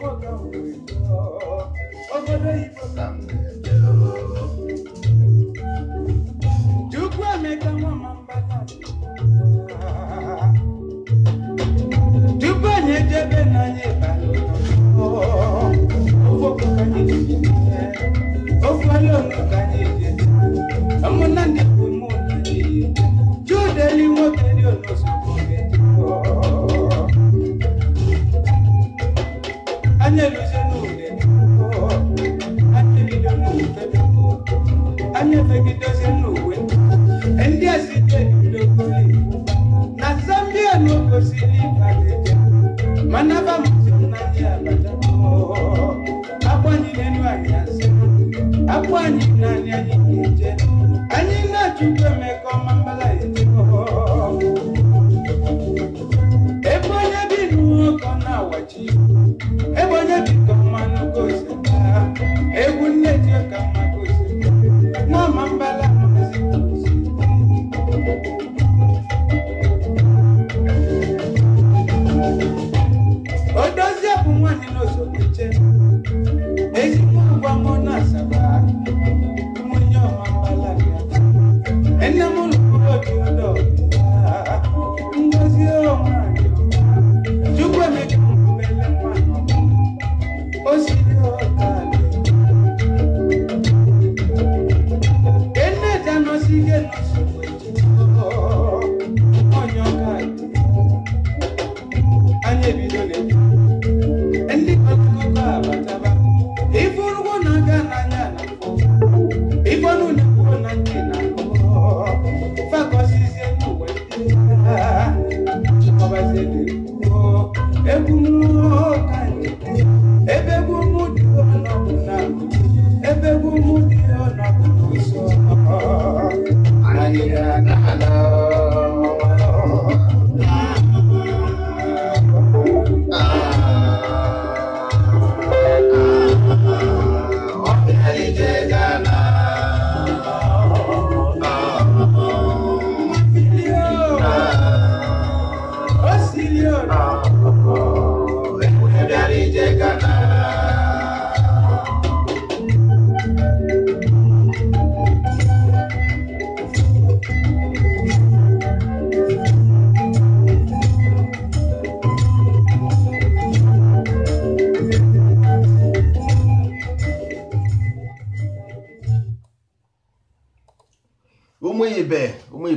Igbo ka m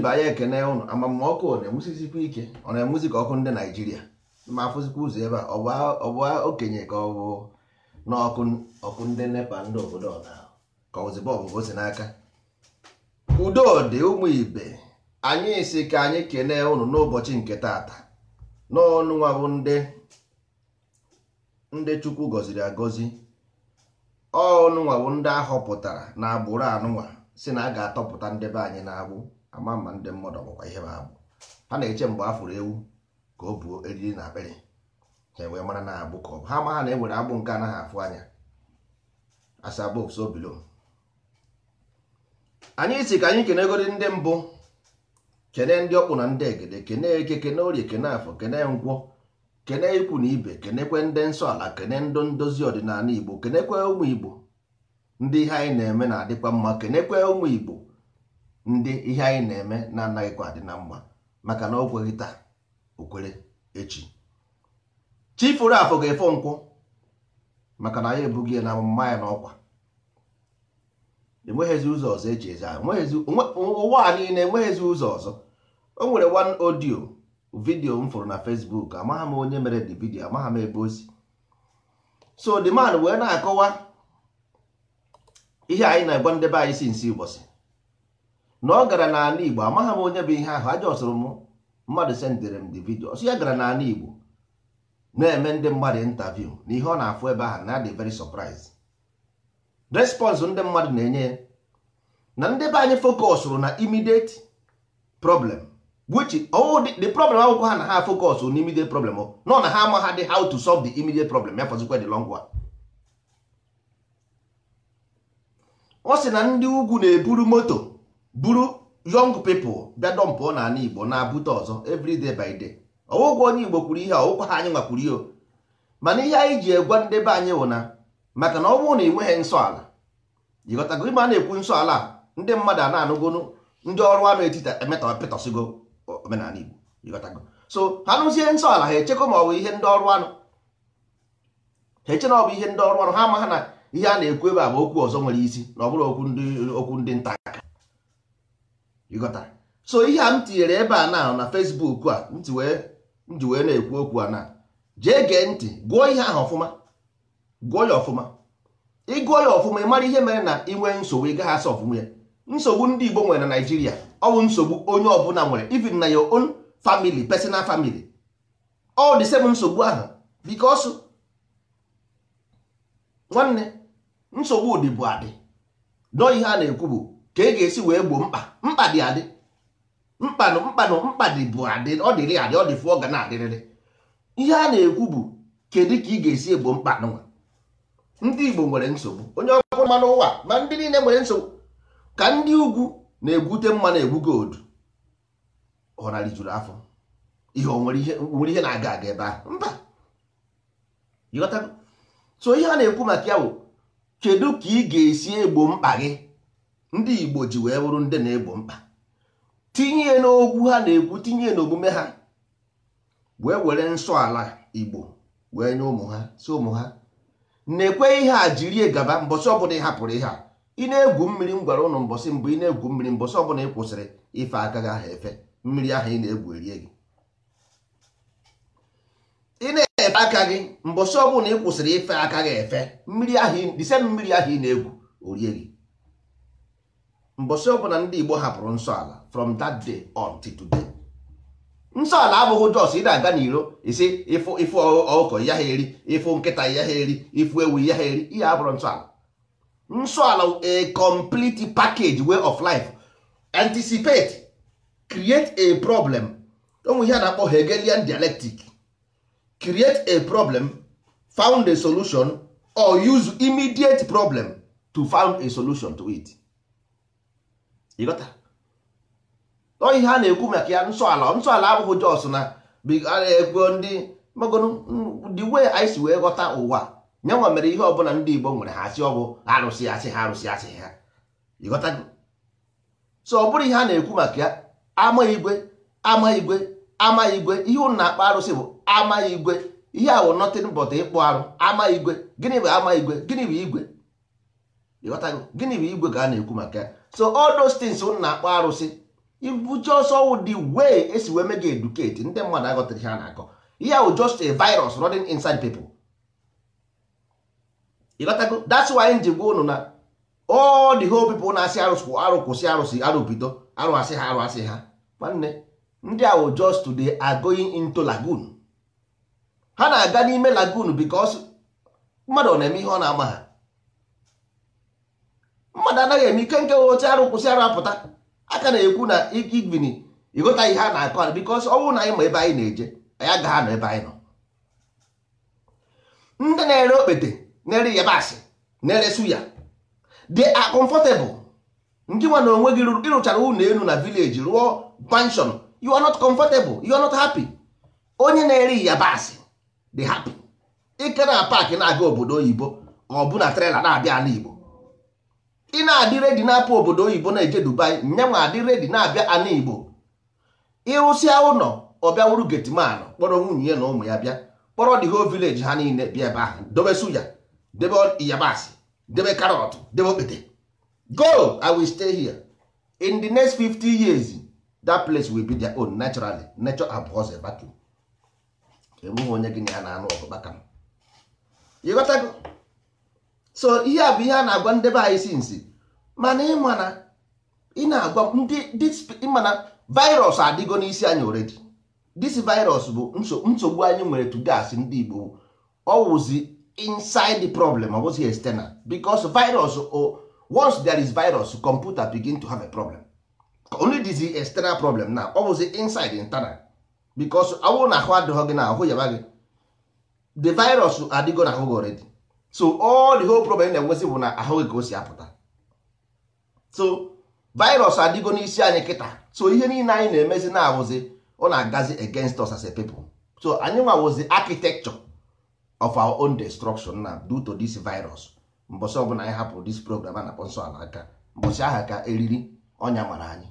mba ya ekene ụnụ amamma ọkụ na-enwusikwa ike ọ na-enwuzi ka ọkụ ndị naijiria ma afụzikwa ụzọ ebe a ọ bụ okenye ka ọ bụ ọkụ ndị nepa ndị obodo na ka ozigbo ọbụbụ si n'aka udo dị ụmụ ibe anyị si ka anyị kenee ụnụ n'ụbọchị nke taata n'ọnụ nwa bụ ndị ndị chukwu gọziri agọzi ọnụnwa bụ ndị ahọpụtara na agbụrụ anụnwa si na a ga-atọpụta ndị be anyị na-agbụ ama ma ndị mmadụ ọkwụkwa ihe ha abụ ha na-eche mgbe a fụrụ ewu ka o buo eriri na akpịrị ha wee mara na agbụ ka ọ bụ ha ma ha na enwere agbụ nke anaghị afụ anya as anyị si ka anyị kenegodi ndị mbụ kene ndị ọkpụ na ndị egede kene eke kene orie kene afọ kene ngwọ kene ikwu na ibe kenekwe ndị nsọ ala kene ndụ ndozi ọdịnala igbo kenekwe ụmụ igbo ndị ihe anyị na-eme na-adịkwa mma kenekwe ụmụ igbo ndị ihe anyị na-eme na-anaghịkwa dị na mma maka na o taa okwere echi chi furu afọ ga-efo nkwụ maka na anyị ebughị ya na amụma ya n'ọkwa enweghịzi ụzọ ọzọ eji eze ụwa a niile enweghịzi ụzọ ọzọ o nwere wan audio vidio m fụrụ na fesbuk amagha m onye mere the vidio amagha m ebe ozi so the man wee na-akọwa ihe anyị na-agwa ndebe anyị si nsi ụbọchị na ọ gara n'ala Igbo amaghị m onye bụ ihe ahụ aja ọsụrụ m mmadụ sendere m the vidio ọsọ ya gara n'ala Igbo na-eme ndị mmadụ interview na ihe ọ na-afụ ebe ahụ na-adị veri sọpraiz response ndị mmadụ na-enye ya na ndị be anyị focusụrụ na immediate problem oh, the problem akwụkwọ ha na ha focusụ na immediate problem oh, nọ na ha amaghadị how to solve the immediate problem ya fọzikwa dị long ọ sị na ndị ugwu na-eburu moto buru young people bịa dọmpụọ n'ala igbo na-abụta ọzọ evriday by day ọwụgwọ onye igbo kwuru ihe ọwụkwa ha anyị nwakwuru ihe mana ihe anyị ji egwa ndị be anyị wụna na maka na ọ bụrụ na ị nweghị nsọ ala jikọtago ime a na-ekwu nsọ ala ndị mmadụ a na-anụgo ndị ọrụ anụ etiti emetapịtọsigo omenala igbo jikọtago so ha nụzie nsọ ala ha echekwa ma ọ bụ ihe ndị ọrụ anụ ha eche na ọ bụ ihe ndị ọrụ anụ ha ama ha na ihe a na-ekwu ebe a bụ okwu ọzọ nwere isi na ọ bụrụ okwu ndị okwu ndị nta aka ịghọtara so ihe a m tinyere ebe a na na Facebook a m wee na-ekwu okwu a na jee gee ntị gụọ ihe ahụ ọfụma gụọ ya ọfụma ịgụọ ya ọfụma ị mara ihe mere na inwe nsogbu ị asa ọfụma ya nsogbu ndị Igbo nwere na Naịjirịa ọ bụ nsogbu onye ọbụla nwere even na your own family personal family ọ dị nsogbu ahụ because nwanne nsogbu dị bụ adị dọọ ihe a na-ekwu bụ ka ị e ga-esi wee gboo mkpa mkpa dị adị mkpanụ mkpanụ mkpa dị bụ adị ọ dịrị adị ọ dị fụ ọ ga na-adịrịrị ihe a na-ekwu bụ kedu ka ị ga-esi egbo mkpa nwa ndị Igbo nwere nsogbu onye ọkụ mmanụ ụwa ma ndị niile nwere nsogbu ka ndị ugwu na-egwute mmanụ egwu godu ọrarị juru afọ ihe nwere ihe na-aga aga ebe ahụ mba ịghọtago so ihe a na-ekwu maka ya bụ kedu ka ị ga-esi egbo mkpa gị ndị igbo ji wee bụrụ ndị na-egbo mkpa tinye n'okwu ha na-ekwu tinye n'omume ha wee were nsọ ala igbo wee nye ụmụ ha si ụmụ ha na-ekwe ihe a jiri gaba mbọsị ọbụla ị hapụrụ ihe a ị na-egwu mmiri m gwara ụnụ mbọsị mbụ ị na-egwu mmiri mbọsị ọbụla ị kwụsịrị ife agaghị aha efe mmiri ahụ ị na-egwu erie gị ị na-efe aka gị mbọsị ọbụla ị kwụsịrị ife aka gị efe mmiri ahụ mmiri ahụ ị na-egwu orie gị mbọsị ọbụla ndị Igbo hapụrụ nsọala ala from that day on today nsọ ala abụghị jos ị na-aga n'iro isi ịfụ ịfụ ọkụkọ ya ha eri ịfụ nkịta ya ha eri ịfụ ewu ya ha eri ihe abụrụ nsọ ala nsọ ala a complete package way of life anticipate create a problem onwe ihe a na-akpọ Hegelian dialectic create a problem found a solution or use immediate problem to found a solution to it ọ ihe a na-ekwu maka ya nsọ ala abụghị jos na ekwu ndị the we anyị si wee ghọta ụwa nwa mere ihe ọbụla ndị Igbo nwere ha asị ọbụ arụsị asị ha arụsị asị ha ịghọtago so ọ bụrụ ihe a na-ekwu maka ya ama igwe ama igwe ama igwe ihe ụnụ na-akpọ arụsị bụ ama igwe ihe a wụ nothing ịkpụ arụ ama igwe gịnị bụ ama igwe gịnị bụ igwe ịghọtago gịnị bụ igwe ka a na-ekwu maka ya so all those things unu na-akpọ arụsị ibuche ọsọ the way esi wee mega educate ndị mmadụ aghọtara ihe a na-akọ ihe ahụ just a virus running inside people ịghọtago that's why m ji gwa unu na all the whole people na-asị arụsị kwụ arụ kwụsị arụsị arụ bido arụ asị ha arụ asị ha nwanne ndị ahụ just today are into lagoon ha na-aga n'ime lagoon because mmadụ ọ na-eme ihe ọ na-ama ha mmadụ anaghị eme ike nke oche arụ kwụsị arụ apụta aka na-ekwu na igini ịghọta ihe a na-akọ ala bikos ọnwụ na anyị ma ebe anyị na-eje anyị agaghị nọ ebe anyị nọ ndị na-ere okpete na-ere yabasị na-ere suya dị comfortable ndị nwa na onwe gị ịrụchara ụlọ elu na vileji rụọ panshọn you are not comfortable you are not happy onye na-ere yabasị dị happy ike na paakị na-aga obodo oyibo ọ bụ na trela na-abịa ala igbo ị na-adị redi na-apụ obodo oyibo na-eje dubai nyanwa adị redi na-abịa ana igbo ịrụsịa ụlọ ọbịawuru getman kpọrọ nwunye ya na ụmụ ya bịa kpọrọ the ho village ha niile bịa ebe ahụ dobe suya debe yabasị debe karọt debe okpete go i will stay here in the next 50 years that place will be their own naturally nature abhors a vacuum enweghị onye gị na ya na-anụ ọgụ kpaka m ịghọtago so ihe a bụ ihe a na-agwa ndebe anyị sinsi mana ịmana ị na-agwa ndị mana virus adịgo n'isi anyị oredi this virus bụ nsogbu anyị nwere tugas ndị Igbo ọ wụzi inside the problem ọ bụzi external because virus o once there is virus computer begin to have a problem only dis is external problem na ọ wụzi inside internal because awụ na ahụ adịghị gị na ahụ yaba gị the virus adịgo na ahụ gị oredi so all the whole problem na-enwezi bụ na ahụ ka o si apụta so virus adịgo n'isi anyị kịta so ihe niile anyị na-emezi na-awụzi ọ na-agazi against us as a people so anyị nwawụzi architecture of our own destruction na due to this virus mbọsị ọbụla anyị hapụrụ this program a na-akpọ nsọ ala aka mbọsị aha ka eriri ọnya mara anyị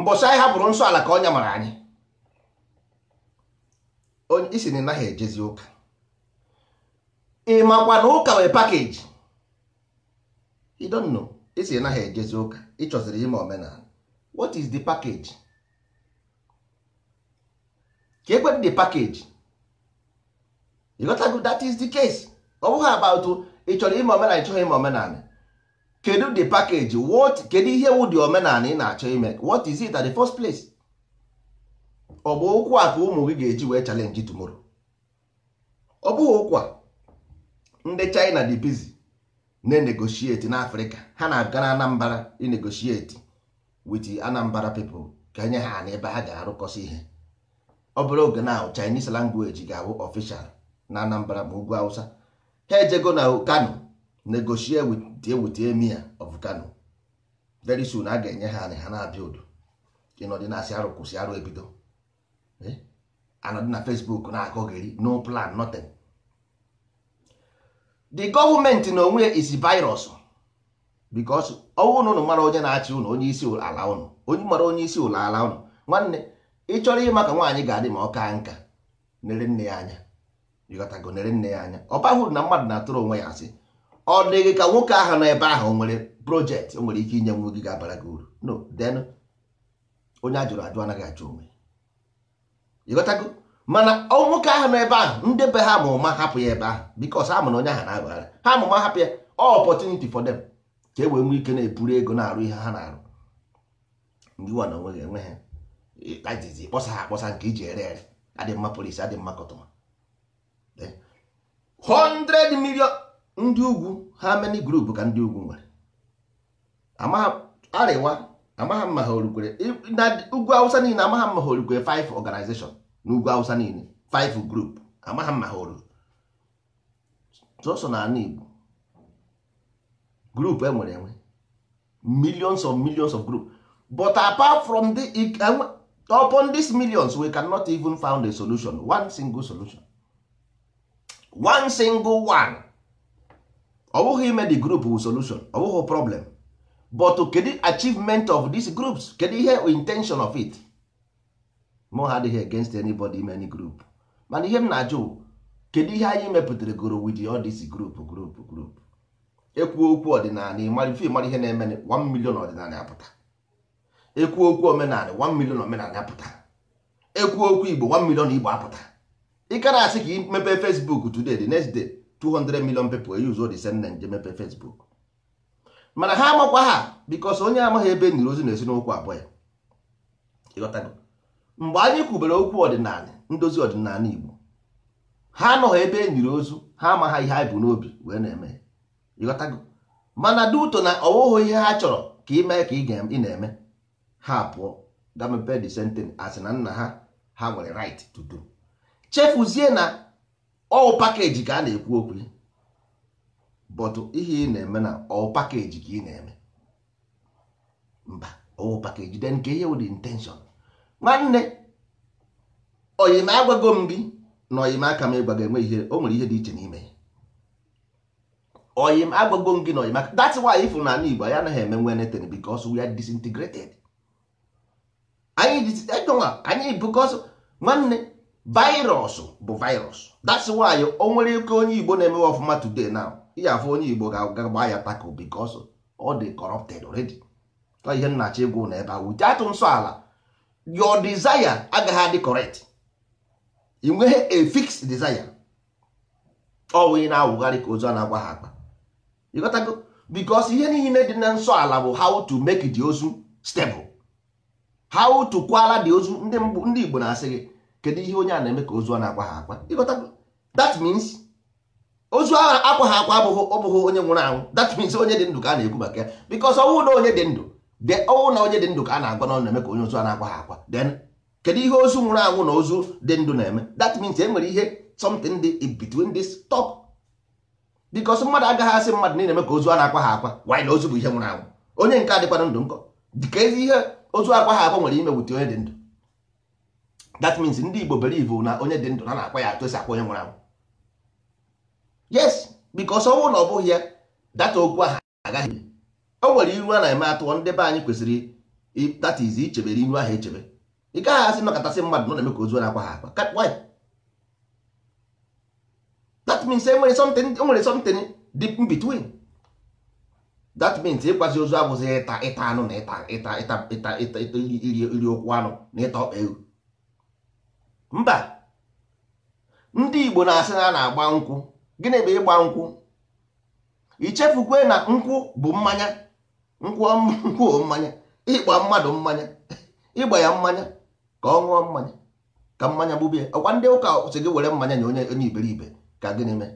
mbọsị anyị hapụrụ nsọ ala ka ọnya mara anyị isi na ị naghị ejezi ụka ị makwa na ụka wee pakeji you don't know esi naghị ejezi ụka ịchọziri ime omenala what is the package ka ekwedị the package you got to that is the case ọ bụghị about ị chọrọ ime omenala ịchọghị ime omenala kedu the package what kedu ihe wụ dị omenala ị na-achọ ime what is it at the first place ọ bụ ụkwụ a ka ụmụ gị ga-eji wee challenge tomorrow ọ bụghị ụkwa ndị China dị busy na enegoshieti na afrịka ha na-aga na anambra inegoshiti wit anambra pepl ka enye ha na ebe ha ga-arụkọsị ihe ọ bụrụ oge na chinese language ga-awụ ọficial na anambra ma ugwu awụsa ha ejego na kano negoshie wit emir of kano very soon a ga-enye ha ha na-abịa udo ịnọdịnasị arụ arụ ebido eh? anọdị na facebook na-akọgheri no plan nothing the gọọmenti na onwe is virus because ọwụ na ụnụ mara onye na-achị ụnụ onye isi ala ụnụ onye mara onye isi ụlọ ala ụnụ nwanne ị chọrọ ịma ka nwaanyị ga-adị ma ọ kaa nka nere nne ya anya ịghọtago nere nne ya anya ọ bahụrụ na mmadụ na-atụrụ onwe ya asị ọ dịghị ka nwoke ahụ nọ ebe ahụ nwere projekt o nwere ike inye nwa gị ga-abara gị uru no den onye ajụrụ ajụ anaghị achụ onwe ịghọtago mana ọ nwoke ahụ nọ ebe ahụ ndebe ha ma ụma hapụ ya ebe ahụ because ha mana onye ahụ na-aghara ha ma ụma hapụ ya ọ opportunity for them ka e wee nwee ike na-eburu ego na-arụ ihe ha na-arụ ndị nwa na onweghị enwe ha ajizi kpọsa ha akpọsa nke iji ere ere adị mma polisi adị mma kọtụma 100 eh? million ndị ugwu ha many group ka ndị ugwu nwere arịwa amaghị mma ha orukwere na ugwu awụsa niile amaghị mma ha orukwere 5 organization n'ugwu awụsa niile five group amaghị m ha ruru sọsọ n'ala igbo group enwere enwe millions of millions of group but apart from the e, e, upon these millions we cannot even found a solution one single solution one single one ọ bụghị ime the group wu solution ọ bụghị problem but kedu achievement of these groups kedu ihe intention of it mụ ha adịghị against anybody in any group mana ihe m na-ajụ kedu ihe anyị mepụtara goro with all this group group group ekwuo okwu ọdịnala ịmara ife ịmara ihe na-eme 1 million ọdịnala apụta ekwu okwu omenala 1 million omenala apụta ekwu okwu igbo 1 million igbo apụta ị ka asị ka ị mepee Facebook today the next day 200 million people e use the same nje mepee Facebook mana ha amakwa ha because onye amaghị ebe e nyiri ozi na esi abụọ ya mgbe anyị kwubere okwu ọdịnala ndozi ọdịnala Igbo ha anọghị ebe e nyiri ozu ha amaghị ihe anyị bụ n'obi wee na-eme mana duto na ọwụghị ihe ha chọrọ ka ị mee ka ị na-eme ha pụọ gamepe the sentence asị na nna ha ha nwere right to do chefuzie na ọwụ pakeji ka a na-ekwu okwu bọtụ ihe ị na-eme na ọwụ pakeji ka ị na-eme mba ọwụ pakeji den nke ihe wụ the intention nwanne oyima agwago m gị na oyima aka m ịgwago enwe ihe o nwere ihe dị iche n'ime oyim agwago m gị na oyima that's why ịfụ na ala Igbo anyị anaghị eme nwe netin because we are disintegrated anyị anyị because nwanne virus bụ virus that's why o nwere ike onye Igbo na-emewe ọfụma today now iji afụ onye Igbo ga-agba ya tako because ọ dị corrupted already ihe nnachi egwu na ebe ahụ ji atụ nsọ ala your desire agaghị adị correct i nweghị a fixed desire ọwụ ị na-awụgharị ka ozu a na-agwa ha akpa ịghọtago because ihe niile dị na nsọ ala bụ how to make the ozu stable how to kwala the ozu ndị Igbo na-asị gị kedu ihe onye a na-eme ka ozu a na-agwa ha akwa ịghọtago that means ozu ahụ akwa ha akwa ọ bụghị onye nwụrụ anwụ that means onye dị ndụ ka a na-ekwu maka ya because ọnwụ na onye dị ndụ ọnwụ na onye dị ndụ ka a na-agwa n'ọnụ na-eme ka onye ozu a na-akwa ha akwa then kedu ihe ozu nwụrụ anwụ na ozu dị ndụ na-eme that means e nwere ihe something dị in between this top because mmadụ agaghị asị mmadụ niile eme ka ozu a na-akwa ha akwa wanyị na ozu bụ ihe nwụrụ anwụ onye nke adịkwana ndụ nkọ dịka ezi ihe ozu akwa ha akwa nwere ime wute onye dị ndụ that means ndị Igbo believe na onye dị ndụ na na-akwa ya atụ esi akwa onye nwụrụ anwụ yes because ọnwụ na ọ bụghị ya data okwu ahụ agaghị o nwere iru a na-eme atụọ ndị be anyị kwesịrị that ichebere iru ahụ echebe ị gaghị asị nọkọtasị mmadụ nọ na-eme ka ozu na-akwa ha akwa that means enwere nwere something e between that means ịkwazi ozu abụzi ịta ịta anụ na ịta ịta ịta ịta ịta iri anụ na ịta ọkpa ewu mba ndị Igbo na-asị na a na-agba nkwụ gịnị bụ ịgba nkwụ ichefukwe na nkwụ bụ mmanya nkwụọ mmanya ịkpa mmadụ mmanya ịgba ya mmanya ka ọ ṅụọ mmanya ka mmanya gbubie ọkwa ndị ụka si gị were mmanya na onye onye iberibe ka gịnị mee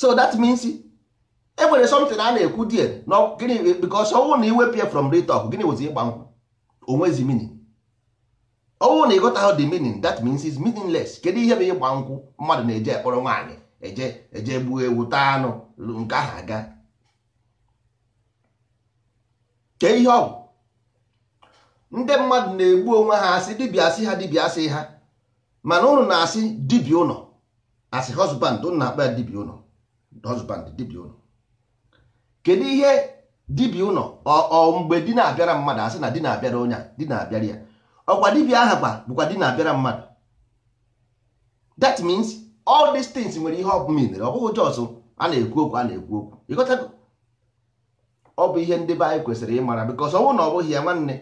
so that means e nwere something a na-ekwu die na gịnị because ọnwụ na iwepụ from the gịnị bụ ịgba nkwụ onwezi meaning ọnwụ na ịghọtaghị the meaning that means is meaningless kedu ihe bụ ịgba nkwụ mmadụ na-eje ekpọrọ nwaanyị eje eje gbuo ewu taa anụ nke ahụ aga kee ihe ọgwụ ndị mmadụ na-egbu onwe ha asị dibịa asị ha dibịa asị ha mana ụnụ na-asị dibịa ụlọ asị hosband, ụnụ na-akpa ya dibịa ụlọ Hosband dibịa ụlọ kedu ihe dibịa ụlọ ọ mgbe di na-abịara mmadụ asị na di na-abịara onye di na-abịara ya ọkwa dibịa aha kwa bụkwa di na-abịara mmadụ that means all these things nwere ihe ọ bụla ọ bụghị jọs a na-ekwu okwu a na-ekwu okwu ịghọtago ọ bụ ihe ndị be anyị kwesịrị ịmara bikos ọnwụ na ọ bụghị ya nwanne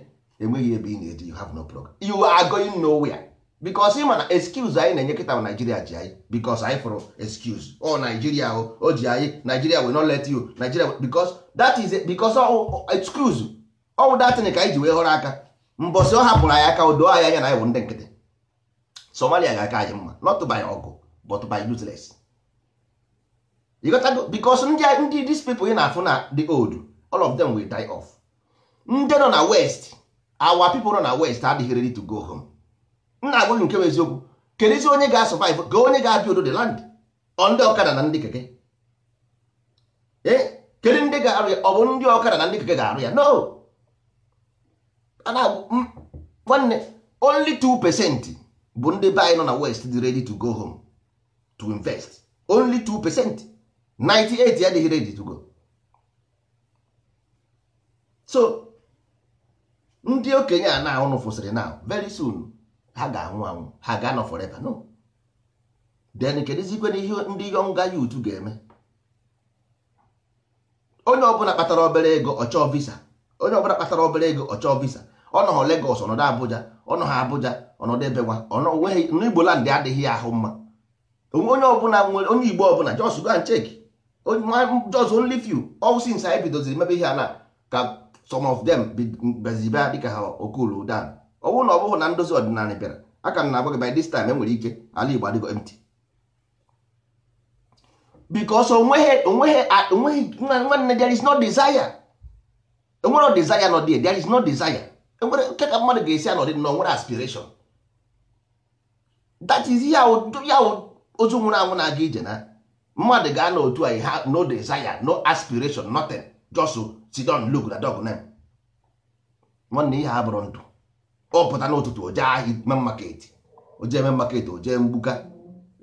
enweghị ebe ị na-eji you have no program you are going nowhere bikos ị ma na excuse anyị na-enye kịta naijiria ji anyị bikos anyị fụrụ excuse ọ naijiria o o ji anyị naijiria we not let you naijiria bikos that is bikos excuse ọwụ datin ka anyị ji wee họrọ aka mbọsị ọ hapụrụ anyị aka odo anyị anya na anyị bụ ndị nkịtị somalia ga-aka anyị mma not by ọgụ but by useless ịghọtago bikos ndị these people ị na-afụ na the old all of them will die off ndị nọ na west our people nọ na west adịghị ready to go home nna agwaghị nke bụ eziokwu isi onye ga-asọvive ka onye ga-abịa odo the land ọ ndị ọkada na ndị keke Ee, eh? kedu ndị ga-arụ ya ọ bụ ndị ọkada na ndị keke ga-arụ ya no nwanne only 2 percent bụ ndị be anyị nọ na west dị ready to go home to invest only 2 percent 98 adịghị ready to go so ndị okenye a na-ahụnụ fụsịrị na very soon ha ga-anwụ anwụ ha ga-anọ forever no then kedụzikwe na ihe ndị yonga youth ga-eme onye ọbụla kpatara obere ego ọchọọ visa onye ọbụla kpatara obere ego ọchọọ visa ọ nọghọ ọnọdụ Abuja ọnọ ha Abuja ọnọdụ ebewa ọnweghị Igbo land adịghị ahụ mma onye ọbụla nwere onye Igbo ọbụla just go and check just only few anyị bidoziri mebe ihe a na ka some of them bezibe dịka ha okulu dan ọ bụrụ na ọ bụghị na ndozi ọdịnala bịara aka m na-agwa by this time enwere ike ala Igbo adịgo empty because onweghị there is no desire enwere desire nọ there there is no desire enwere nke ka mmadụ ga-esi anọdị na onwere aspiration that is ya ya ozu nwụrụ anwụ na-aga ije na mmadụ ga-anọ otu anyị ha no desire no aspiration nothing just si don look na dog name nwanne ihe a bụrụ ndụ ọ pụta n'ụtụtụ o jee ahịa ime maketi o jee eme maketi o jee mgbuka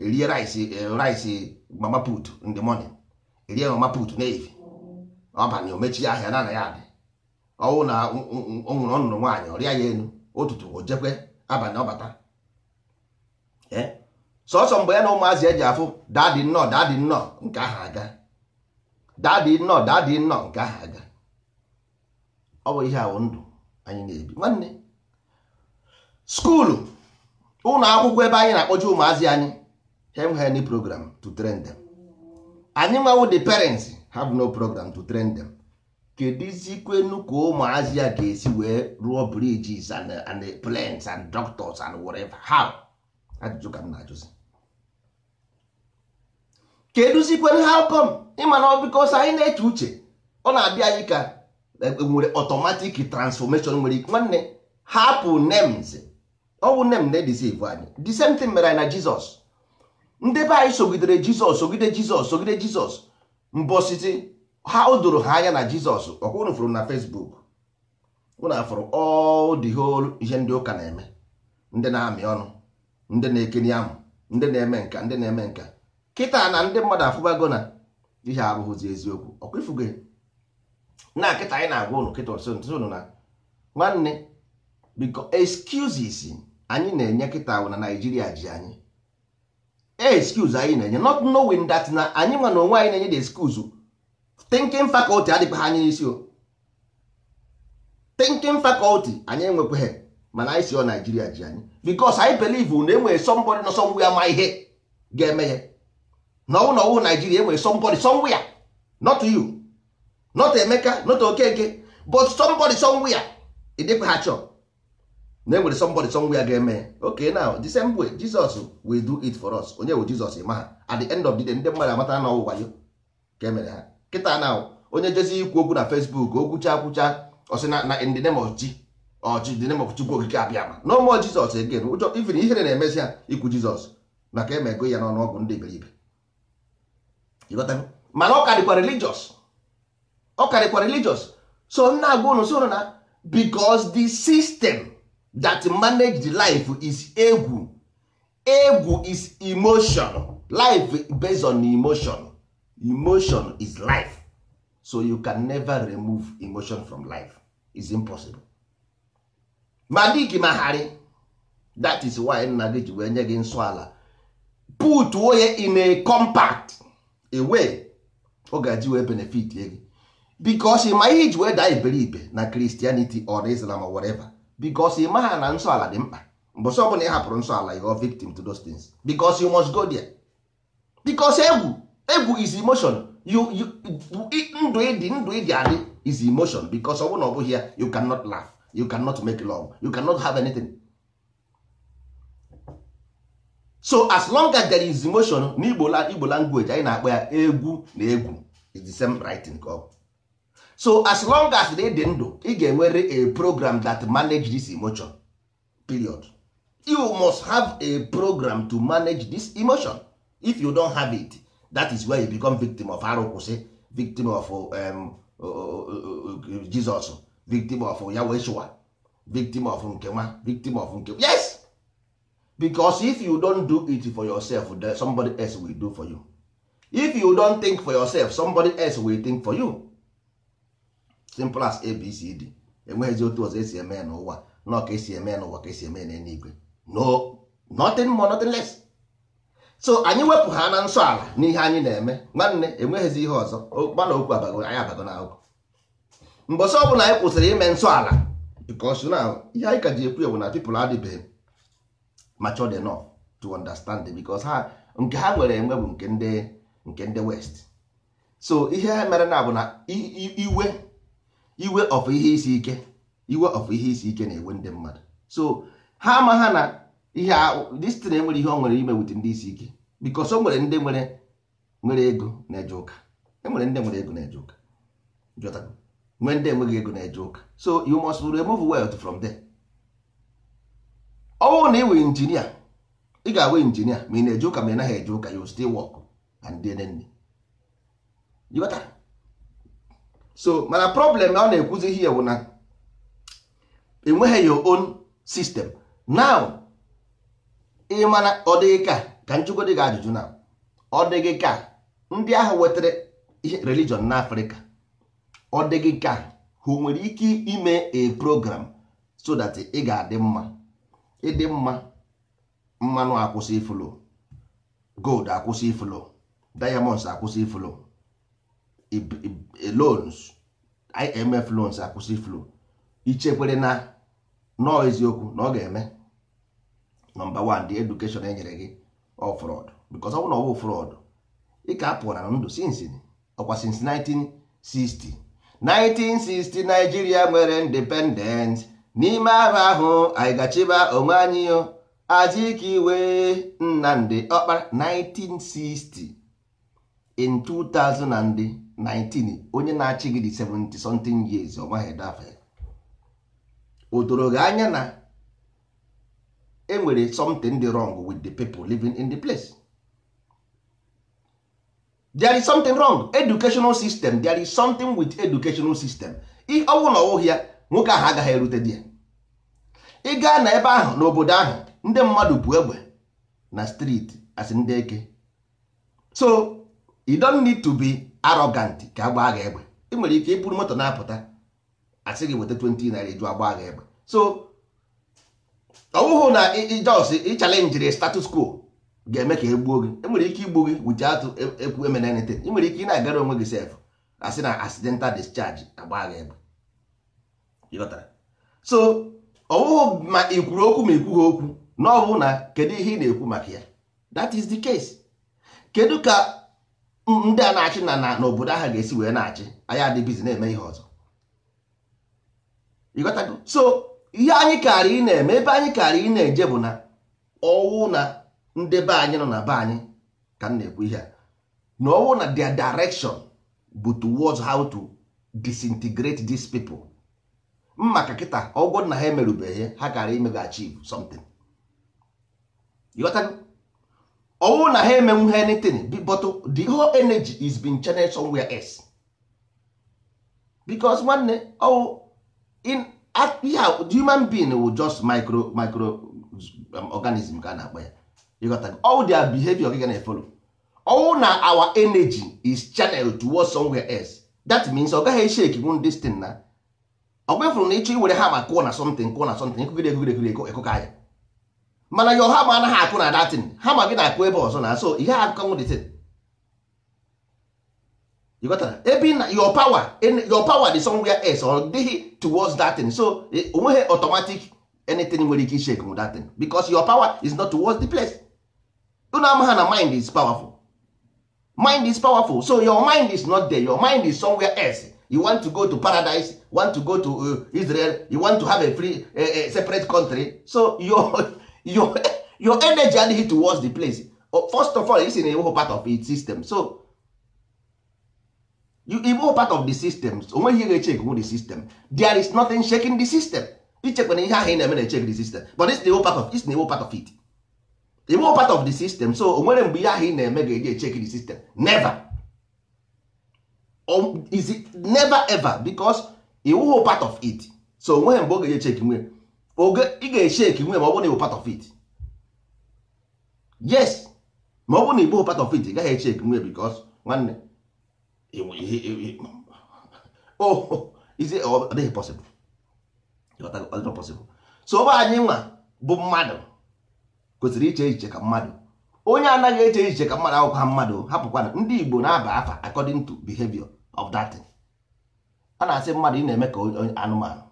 erie rice rice mama put in the morning erie mama put n'efi ọbanye omechie ahịa na na adị ọnwụ na ọ nwụrụ ọnụrụ nwaanyị ọrịa ya enu ụtụtụ o jekwe abalị ọbata sọsọ mgbe ya na ụmụazị eji afụ daadị nnọọ daadị nnọọ nke aha aga daadị nnọọ daadị nnọọ nke aha aga ọ bụ ihe ahụ ndụ anyị na-ebi nwanne skuulu ụlọ akwụkwọ ebe anyị na akpọji ụmụazị anyị hem hen program to train them anyị nwawo the parents have no program to train them kedizikwenu ka ụmụazị a ga-esi wee rụọ bridges and, and and doctors and whatever how ajụjụ ka m na-ajụzi keduzikwenu how come ịma na ọ bikọsa anyị na-eche uche ọ na-abịa anyị ka Eh, nwere automatic transformation nwere ike nwanne hapụ names ọ bụ na-edesive anyị the same thing mere anyị na Jizọs ndị be anyị sogidere Jizọs sogide Jizọs sogide Jizọs mbọsiti ha o doro ha anya na Jizọs ọkwa unu fụrụ na fesbuk unu afụrụ all the ihe ndị ụka na-eme ndị na-amị ọnụ ndị na-ekeni amụ ndị na-eme nka ndị na-eme nka kịta na ndị mmadụ afụbago na ihe abụghịzi eziokwu ọkwa ifugo na kịta anyị na-agwa ụnụ kịta ọsọ ụnụ na nwanne biko excuses anyị na-enye kịta na naijiria ji anyị excuse anyị na-enye not knowing that na anyị nwa na onwe anyị na-enye the excuse thinking faculty adịkwa ha anyị n'isi o thinking faculty anyị enwekwaghị mana anyị si ọ naijiria ji anyị because anyị believe na enwere somebody nọ somewhere ama ihe ga-eme ya na ọnwụ na ọnwụ Naịjirịa enwere somebody somewhere not you not Emeka not Okeke but somebody somewhere ịdịkwa ha chọọ na enwere somebody somewhere ga-eme okay now the same way Jesus will do it for us onye bụ jizọs ma ha at the end of the day ndị mmadụ amata na ọwụwa ya ka emere ha kịta na onye jezi ikwu okwu na Facebook okwucha akwụcha ọsị na in ọchị the name Chukwu okike abịa ma no more Jesus again ụjọ even ihere na-emezi ha ikwu Jizọs maka emego ya n'ọnụ ọgụ ndị iberibe mana ọ ka dịkwa ọ karịkwa religious so nna agwa unu soro na because the system that manage the life is egwu egwu is emotion life based on emotion emotion is life so you can never remove emotion from life is impossible ma mahari that is why nna gị ji wee nye gị nsọ ala put woye in a compact away ọ ga-eji wee benefit gị bikos ịma ihe iji wee daa iberibe na kristianity or islam or whatever bikos ịma ha na nsọ ala dị mkpa mbọsị ọbụla ị hapụrụ nsọ ala you victim to those things bikos you must go there bikos egwu egwu is emotion you ndụ ịdị ndụ ịdị adị is emotion bikos ọ bụrụ na ọ bụghị ya you cannot laugh you cannot make love you cannot have anything so as long as there is emotion n'Igbo igbo language anyị na-akpọ ya egwu na egwu is the same writing ka ọ so as long as ị dị ndụ ị ga-enwere a program that manage this emotion period you must have a program to manage this emotion if you don't have it that is where you become victim of arụkwụsị victim of um, Jesus victim of Yahweh victim of nkewa victim of nkewa yes because if you don't do it for yourself then somebody else will do for you if you don't think for yourself somebody else will think for you simple as abcd enweghịzi otu ọzọ esi eme n'ụwa nọ ka esi eme n'ụwa ka esi eme n'eluigwe no nothing more nothing less so anyị wepụ ha na nsọ ala n'ihe anyị na-eme nwanne enweghịzi ihe ọzọ gbana okwu abago anyị abago na akwụkwọ mgbe ọsọ ọbụla anyị kwụsịrị ime nsọ ala because now ihe anyị ka ji ekwu ewu na people adịbeghị matured enough to understand it because ha nke ha nwere enwe bụ nke ndị nke ndị west so ihe ha mere na bụ na iwe iwe of ihe isi ike iwe of ihe isi ike na-ewe ndị mmadụ so ha ama ha na ihe destin enwere ihe ọ nwere ime wit ndị isi ike bikos o nwere ndị nwere nwere ego na-eje ụka enwere ndị nwere ego na-eje ụka jọtago nwee ndị enweghị ego na-eje ụka so you must remove wealth from there Ọ ọnwụ na ị nwere injinia ị ga agwa injinia ma ị na-eje ụka ma ị naghị eje ụka you still work and dnn jikọtara so mana problem na ọ na-ekwuzi ihe bụ na enweghị your own system now ị mana ọ dịghị ka ka dị gị ajụjụ na ọ dịghị ka ndị ahụ wetara ihe religion n'afrịka ọ dịghị ka ha nwere ike ime a program so that ị ga-adị mma ịdị mma mmanụ akwụsị ifulu gold akwụsị ifulu diamonds akwụsị ifulu loans IMF loans akwụsị flow ichekwere na nọọ eziokwu na ọ ga-eme nọmba 1 edukeshọn education enyere gị ọ fraud because ọ na ọ bụ fraud ị ka apụọ na ndụ ọkwa since 1960 1960 Nigeria nwere independence n'ime ahụ ahụ anyị gachiba onwe anyị aziki iwe ndị Ọkpara 1960 in 2019 onye na-achị gị dị 70 something years ọ maghị dafe o doro gị anya na enwere something dị wrong with the people living in the place there is something wrong educational system there is something with educational system ihe na ọwụghị ya nwoke ahụ agaghị erute di ya ị gaa na ebe ahụ n'obodo ahụ ndị mmadụ bụ egbe na street as ndị eke so you don't need to be arrogant ka gbaa gị egbe ị nwere ike ịbụrụ moto na-apụta asị gị weta 20 naira eju agbaa gị egbe so ọ na ijos ịchalenjiri status quo ga-eme ka egbuo gị enwere ike igbu gị wuchi atụ ekwu e, e emena anything ị nwere ike ị na-agara onwe gị sef asị na accidental discharge agbaa gị egbe so ọ ma ị kwuru okwu ma ị okwu na ọ na kedu ihe ị na-ekwu maka ya that is the case kedu ka ndị a na-achị na n'obodo ahụ ga-esi wee na-achị anyị adịbizi na-eme ihe ọzọ ịghọtago so ihe anyị karị ị na-eme ebe anyị kaara ị na-eje bụ na ọwụ na ndị be anyị nọ na be anyị ka m na-ekwu ihe a na ọwụ na their direction bụ towards how to disintegrate these people maka kịta ọgwọ na ha emerubeghị ha karị imeghachi something ọnwụ na ha emenwu ha anything but the whole energy is being channeled somewhere else because nwanne ọwụ in human being wu just micro micro organism ka a na-akpa ya ịghọta ọwụ dia behavior gị na efolo ọwụ na our energy is channeled towards somewhere else that means ọ gaghị eshake wun this thing na ọ gwefụrụ na ịchọ iwere ha ma kụọ na something kụọ na something ekogide ekogide ekogide ekokọ ya mana yo hama anaghị akwụ na datin ma gị na-akwụ ebe ọzọ na so ihe akụkọnwụ dịtin ebe na your power your power dị somewhere else ọ dịghị towards datin so onweghị automatic anything nwere ike shake m datin because your power is not towards the place unu ama ha na mind is powerful mind is powerful so your mind is not there your mind is somewhere else you want to go to paradise want to go to uh, Israel you want to have a free uh, uh, separate country so your your your energy heat towards the place oh, first of all isi na ịbụghị part of its system so you part of the system onweghị ihe ga-eche ekwu the system there is nothing shaking the system ichekwa na ihe ahụ ị na-eme na-echek the system but is the part of it's the whole part of it the part of the system so onwere nwere mgbe ihe ahụ ị na-eme ga-eji echek the system never um, is it never ever because ịwụghị part of it so onweghị mgbe ọ ga-eji echek nwere oge ị ga-esheki eche nwe ma ọ bụrụ na ịbụ part of it yes ma ọ bụrụ na ịbụ part of it ị gaghị esheki nwe because nwanne ọdịghị oh, oh, oh, possible so ọ anyị nwa bụ mmadụ kwesịrị iche echiche ka mmadụ onye anaghị eche echiche ka mmadụ akwụkwa mmadụ hapụkwana ndị Igbo na-aba afa according to behavior of that thing a na-asị mmadụ ị na-eme ka anụmanụ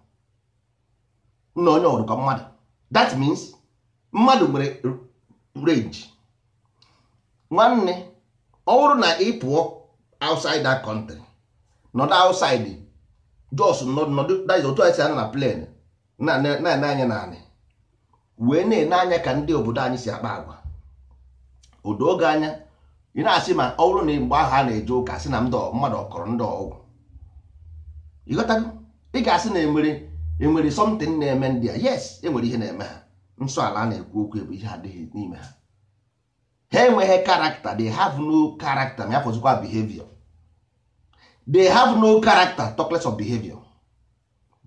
nna onye ọbụrụ ka mmadụ that means mmadụ nwere range nwanne ọ bụrụ na ị pụọ outside that country nọdụ outside jos nọdụ otu anyị si anya na plane na-ene anya naanị wee na-ene anya ka ndị obodo anyị si akpa agwa odo oge anya ị na-asị ma ọ bụrụ na mgbe ahụ a na-eje ụka si na mmadụ ọkọrọ ndị ọgwụ ị ga-asị na emere enwere something na-eme ndị a yes enwere ihe na-eme ha nsọ ala na-ekwu okwu ebe ihe adịghị n'ime ha ha enweghị karakta they have no character ma ya fọzikwa behavior they have no character talk of behavior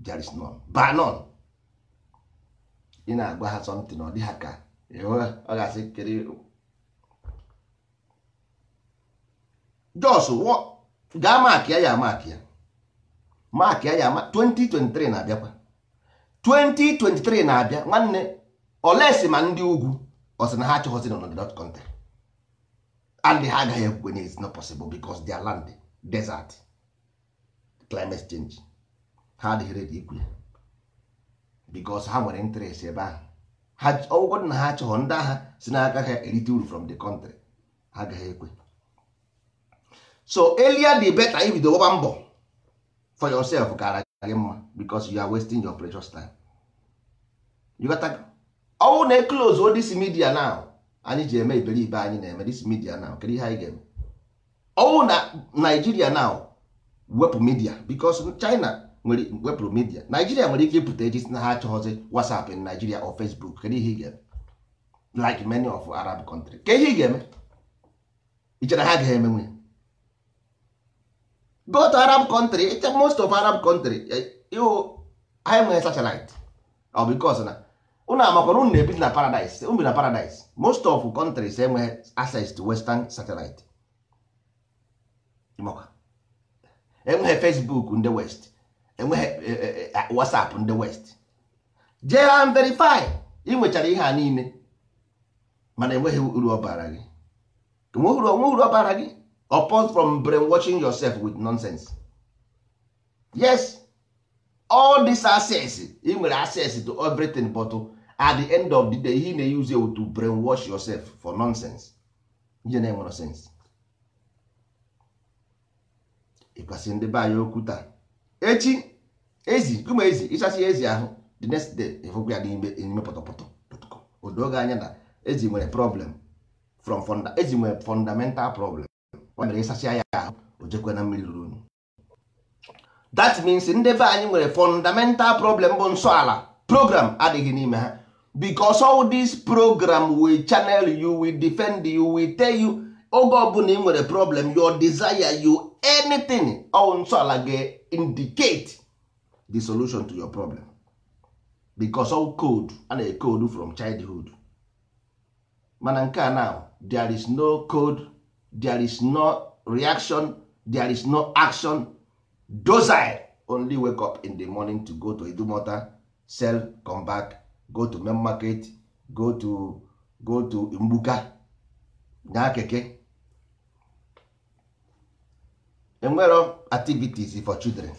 there is none none ị na-agwa ha something ọ dị ha ka ọ ga-asị kere jos gaa maakị ya ya maakị ya maakị ya ya 2023 na-abịakwa 2023 na-abịa nwanne olesi ma ndị ugwu ọsị na ha chọghọzi nọ na country and ha agaghị ekwe na it's not possible because their land desert climate change ha adịghị ready ikwu ya because ha nwere interest ebe ahụ ọgwụgwọ na ha achọghọ ndị agha si na ha erite uru from the country ha agaghị ekwe so earlier di better ibido gbaba mbọ for yourself gara gị mma because you are wasting your precious time you got to ọwụ na e close all this media now anyị ji eme iberibe anyị na-eme this media now kedu ihe anyị ga-eme ọwụ na Nigeria now wepụ media because China nwere wepụrụ media Nigeria nwere ike ịpụta eji na ha achọghọzi WhatsApp in Nigeria or Facebook kedu ihe ị ga-eme like many of Arab country ka ihe ị ga-eme ichere ha agaghị emenwe go to arab country most of arab country ihu ha enweghị satellite ọ oh, bikos na unu amakwana unu na-ebi na paradise unu na paradise most of countries enweghị access to western satellite enweghị facebook ndị west enweghị eh, eh, eh, ah, whatsapp ndị west jee ha verify ị nwechara ihe a niile mana enweghị uru ọ bara gị enweghị uru ọ bara gị apart from brainwashing yourself with nonsense yes all this access ị nwere access to everything but at the end of the day he na-use you to brainwash yourself for nonsense ihe na-enwere sense ịkwasị ndị be anyị okwu taa echi ezi kuma ezi ịchasị ezi ahụ the next day ịfụkwu ya n'ime pọtọpọtọ odoga anya na ezi nwere problem from funda ezi nwere fundamental problem ọ mere ịsasịa ya ahụ o jekwe na mmiri ruru that means ndị be anyị nwere fundamental problem bụ nsọ program adịghị n'ime ha because all this program will channel you will defend you will tell you oge ọbụla ị nwere problem your desire you anything all nsọ ala ga-indicate the solution to your problem because all code a na-ekode from childhood mana nke a now there is no code there is no reaction there is no action docile only wake up in the morning to go to Idumota sell come back go to main market go to go to Mbuka na keke enwero activities for children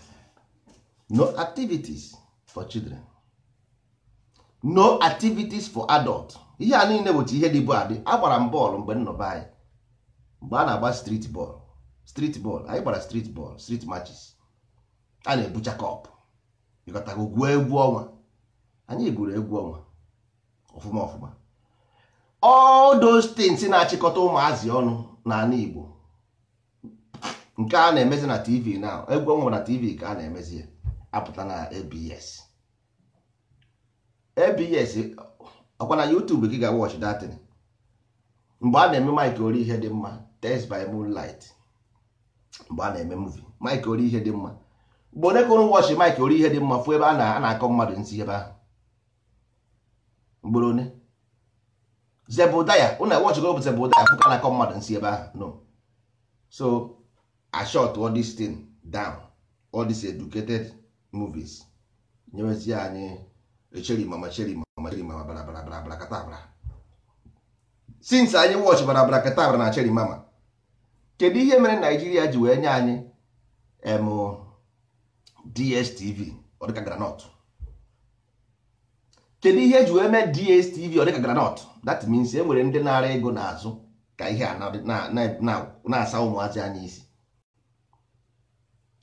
no activities for children no activities for adult ihe a niile bụchi ihe dịbu adị agbara m bọọlụ mgbe nnọba anyị mgbe a na-agba street ball street ball anyị gbara street ball street matches a na-ebucha kọpụ ịkọtago gwuo egwu ọnwa anyị gwuru egwu ọnwa ọfụma ọfụma all those things na-achịkọta ụmụazị ọnụ n'ala Igbo nke a na-emezi na tv na egwu ọnwa na tv ka a na-emezi ya apụta na abs abs ọkwa na YouTube gị ga-watch datin mgbe a na-eme mike ori ihe dị mma test by moonlight mgbe a na-eme muvi mike ori ihe dị mma mgbe onye kụrụ wọchị mike ori ihe dị mma fụ ebe a na-akọ mmadụ nsị ebe ahụ mgboro one Zebụdaya ụna wọchị go zebudaya Zebụdaya ka na-akọ mmadụ nsị ebe ahụ no so ashot all this thing down all these educated movies nyewezie anyị echeri mama cheri mama cheri mama bara bara bara bara kata bara since anyị wọchị bara bara kata bara na cheri mama kedu ihe mere naijiria ji wee nye anyị dstv ọdịka granọt kedu ihe ji wee mee dstv ọdịka granot that means e nwere ndị na-ara ego n'azụ ka ihe a na-asa ụmụazị anyị isi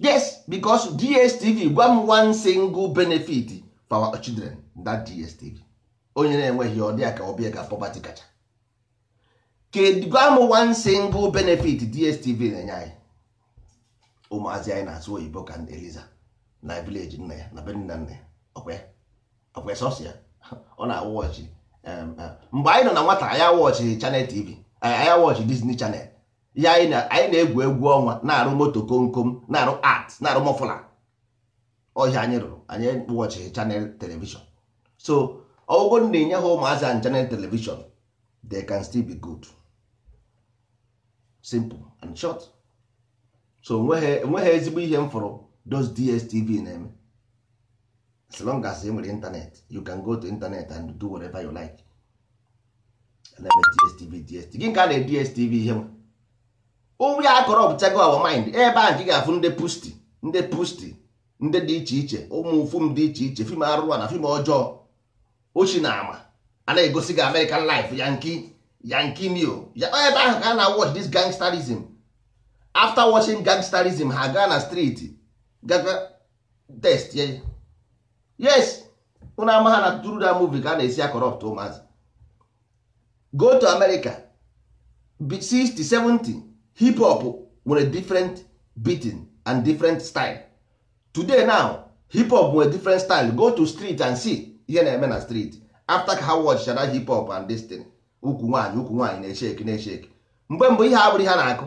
yes because dstv gwa m one single benefit for our children that dstv onye na-enweghị ọdịya ka ọbịa ka poverty kacha gwa m one single benefit dstv na-enye anyị ụmụazị anyị na e. azụ oyibo ka eliza na vileji nna ya na benin na nna ya ọkwa sọsọ ya ọ na-awụ ọchị mgbe anyị nọ na nwata anyị awọchị chanel tv anyị awọchị disney chanel ya anyị na-egwu egwu ọnwa na-arụ moto komkom na-arụ art na-arụ mọfụla ọhịa anyị rụrụ anyị wọchị chanel telivishọn so ọgwụgwọ na-enye ha ụmụazị anyị chanel telivishọn they can still be good. simple and short so onweghị ezigbo ihe m fọrọ those dstv na-eme as long as e nwere internet you can go to internet and do whatever you like na dstv dstv gị ka a na-e dstv ihe m? onwe ya akọrọ ọbụchago our mind ebe a gị ga-afụ ndị pusti ndị pusti ndị dị iche iche ụmụ fim dị iche iche fim arụrụ na fim ọjọọ ochi na ama a na-egosi gị American life ya nke yankimio ebe ahụ ka a na-watch this gangsterism after watching gangsterism ha gaa na street gaga test ya yes ụnụ ama ha na true that movie ka a na-esi akọrọpt ụmụazị go to America 60 6070 hip hop nwere different beating and different style today now hip hop nwere different style go to street and see ihe na-eme na street after ka ha watch hip hop and this thing ukwu nwaanyị ukwu nwaanyị na echeki na echeki mgbe mbụ ihe abụrụ ihe na-akụ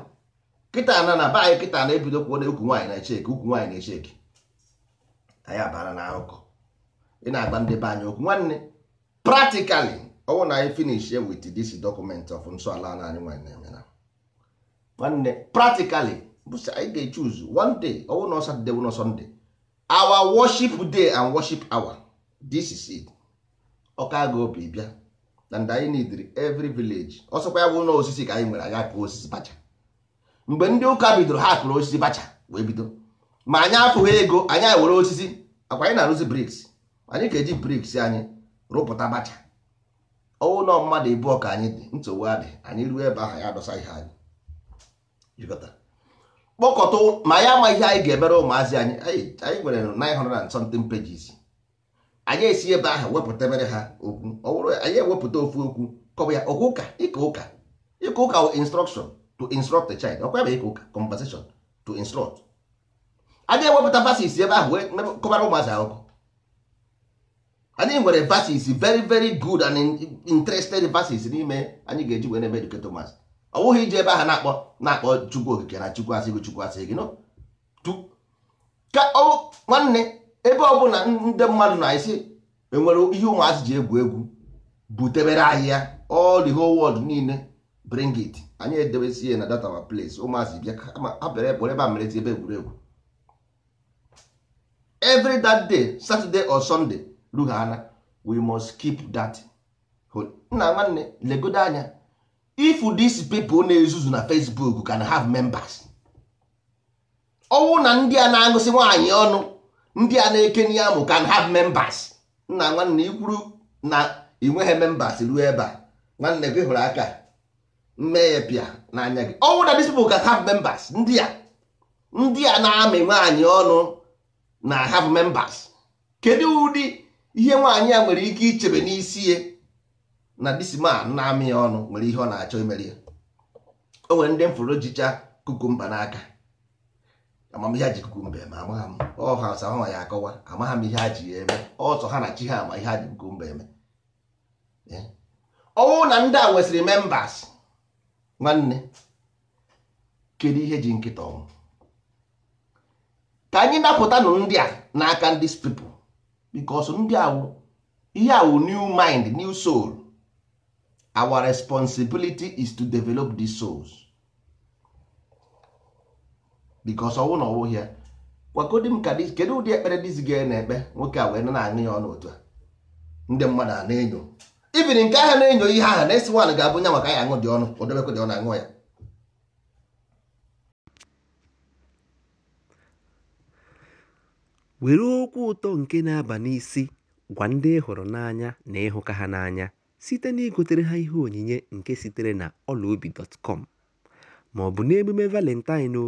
kịta na na be kịta na-ebido kwuo na ukwu nwaanyị na echeki ukwu nwaanyị na echeki anyị abara na akụkọ ị na-agba ndị be anyị okwu nwanne praktikali ọnwụ na anyị finish with this document of nsọala anyị nwaanyị na-eme na nwanne practically bụsị anyị ga-echuzu one day ọnwụ na Satọde bụ na Sọnde our worship day and worship hour this is ọka aga obi bịa and anyị need every village ya bụ ụlọ osisi ka anyị nwere anyị akụ osisi bacha mgbe ndị ụka bidoro ha apụrụ osisi bacha wee bido ma anyị apụghị ego anyị were osisi akwa anyị na-arụzi briks anyị ga-eji briks anyị rụpụta bacha ọwụlọ mmadụ ịbụọ ọka anyị dị nsogbu adị anyị ruo ebe ahụ ya adọsa ihe anyị kpọkọta ma anyị ama ihe anyị ga-emere ụmụazị anyị anyị nwere 900 na something pages anyị esi ebe ahụ mere ha okwu ọ anyị ewepụta ofu okwu kọba ya ọkwa ụka ịka ụka ịka ụka instruction to instruct the child ọkwa ebe ịka ụka conversation to instruct anyị ewepụta verses ebe ahụ wee kọbara ụmụazị akụkọ anyị nwere verses very very good and interested verses n'ime anyị ga-eji wee na-eme educate ụmụazị ọ bụghị iji ebe ahụ na-akpọ na-akpọ chukwu okike na chukwu asị gị chukwu asị gị nọ nwanne ebe ọ bụla ndị mmadụ na-esi enwere e ihe ụmụazị ji egwu egwu butebere ahịa all the whole world niile bring it anyị edebesi ya na data ma place ụmụazị bịa ha bịara ebe ebe a mere ebe egwuregwu every that day saturday or sunday rughana we must keep that nna nwanne legodo anya if these people na-ezuzu na facebook can have members ọnwụ na ndị a na-agụsị nwaanyị ọnụ ndị a na eke n'ihe mụ can have members nna nwanne ikwuru na ị nweghị members ruo ebe a nwanne gị hụrụ aka mme pịa n'anya gị ọnwụ na disipl can have members ndị a ndị a na-amị nwaanyị ọnụ na hav membas kedu ụdị ihe nwaanyị a nwere ike ichebe n'isi ya na disman na-amị ya ọnụ nwere ihe ọ na-achọ imere ya o nwere ndị m fụrụ jicha kukumba n'aka amamihe ji kukumba eme amagha m ọha asa ha ya akọwa amagha m ihe ha ji ya eme ọsọ ha na chi ha ama ihe ha ji kukumba eme ọnwụ na ndị a nwesịrị membas nwanne kedu ihe ji nkịta ọnwụ ka anyị napụtanụ ndị a n'aka ndị spipụ bikos ndị awụ ihe awụ new mind new soul our responsibility is to develop these souls bikos ọnwụ na ọnwụghị ya gwakodi m ka kedu ụdị ekpere dizi gị na-ekpe nwoke a wee na-aṅụ ya ọnụ otu a ndị mmadụ a na-enyo ibiri nke ahụ na-enyo ihe ahụ na-esi nwaanyị ga-abụ nya maka ya aṅụ dị ọnụ odebekwe dị na aṅụ ya were okwu ụtọ nke na-aba n'isi gwa ndị ị n'anya na ịhụka ha n'anya site na igotere ha ihe onyinye nke sitere na ọlaobi ma ọ bụ n'emume valentine o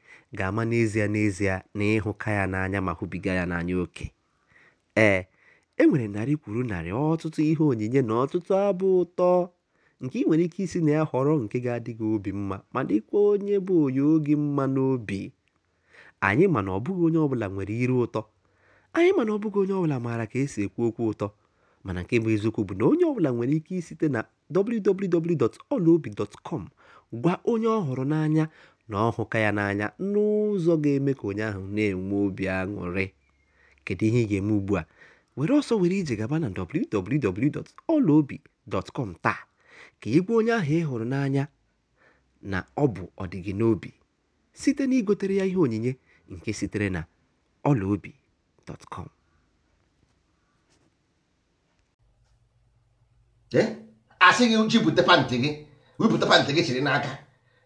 ga-ama n'ezie n'ezie na ịhụka ya n'anya ma hụbiga ya n'anya oke ee e nwere narị kwuru narị ọtụtụ ihe onyinye na ọtụtụ abụ ụtọ nke ị nwere ike isi na ya họrọ nke ga adịghị obi mma ma dịkwa onye bụ onye oge mma n'obi anyị mana ọbụghị onye ọbụla nwere iru ụtọ anyị mana ọbụghị onye ọbụla maara ka esi ekwu okwu ụtọ mana nke bụ eziokwu bụ na onye ọbụla nwere ike isite na wwwolobicom gwa onye ọ họrọ n'anya na ọ ya n'anya n'ụzọ ga-eme ka onye ahụ na-enwe obi aṅụrị kedu ihe ị ga-eme ugbu a were ọsọ were ije gaba na www.ọlaobi.com taa ka ị gwa onye ahụ ị hụrụ n'anya na ọ bụ ọdịgị n'obi site na igotere ya ihe onyinye nke sitere na ọlaobi.com asị gị jipụta gị gị chiri n'aka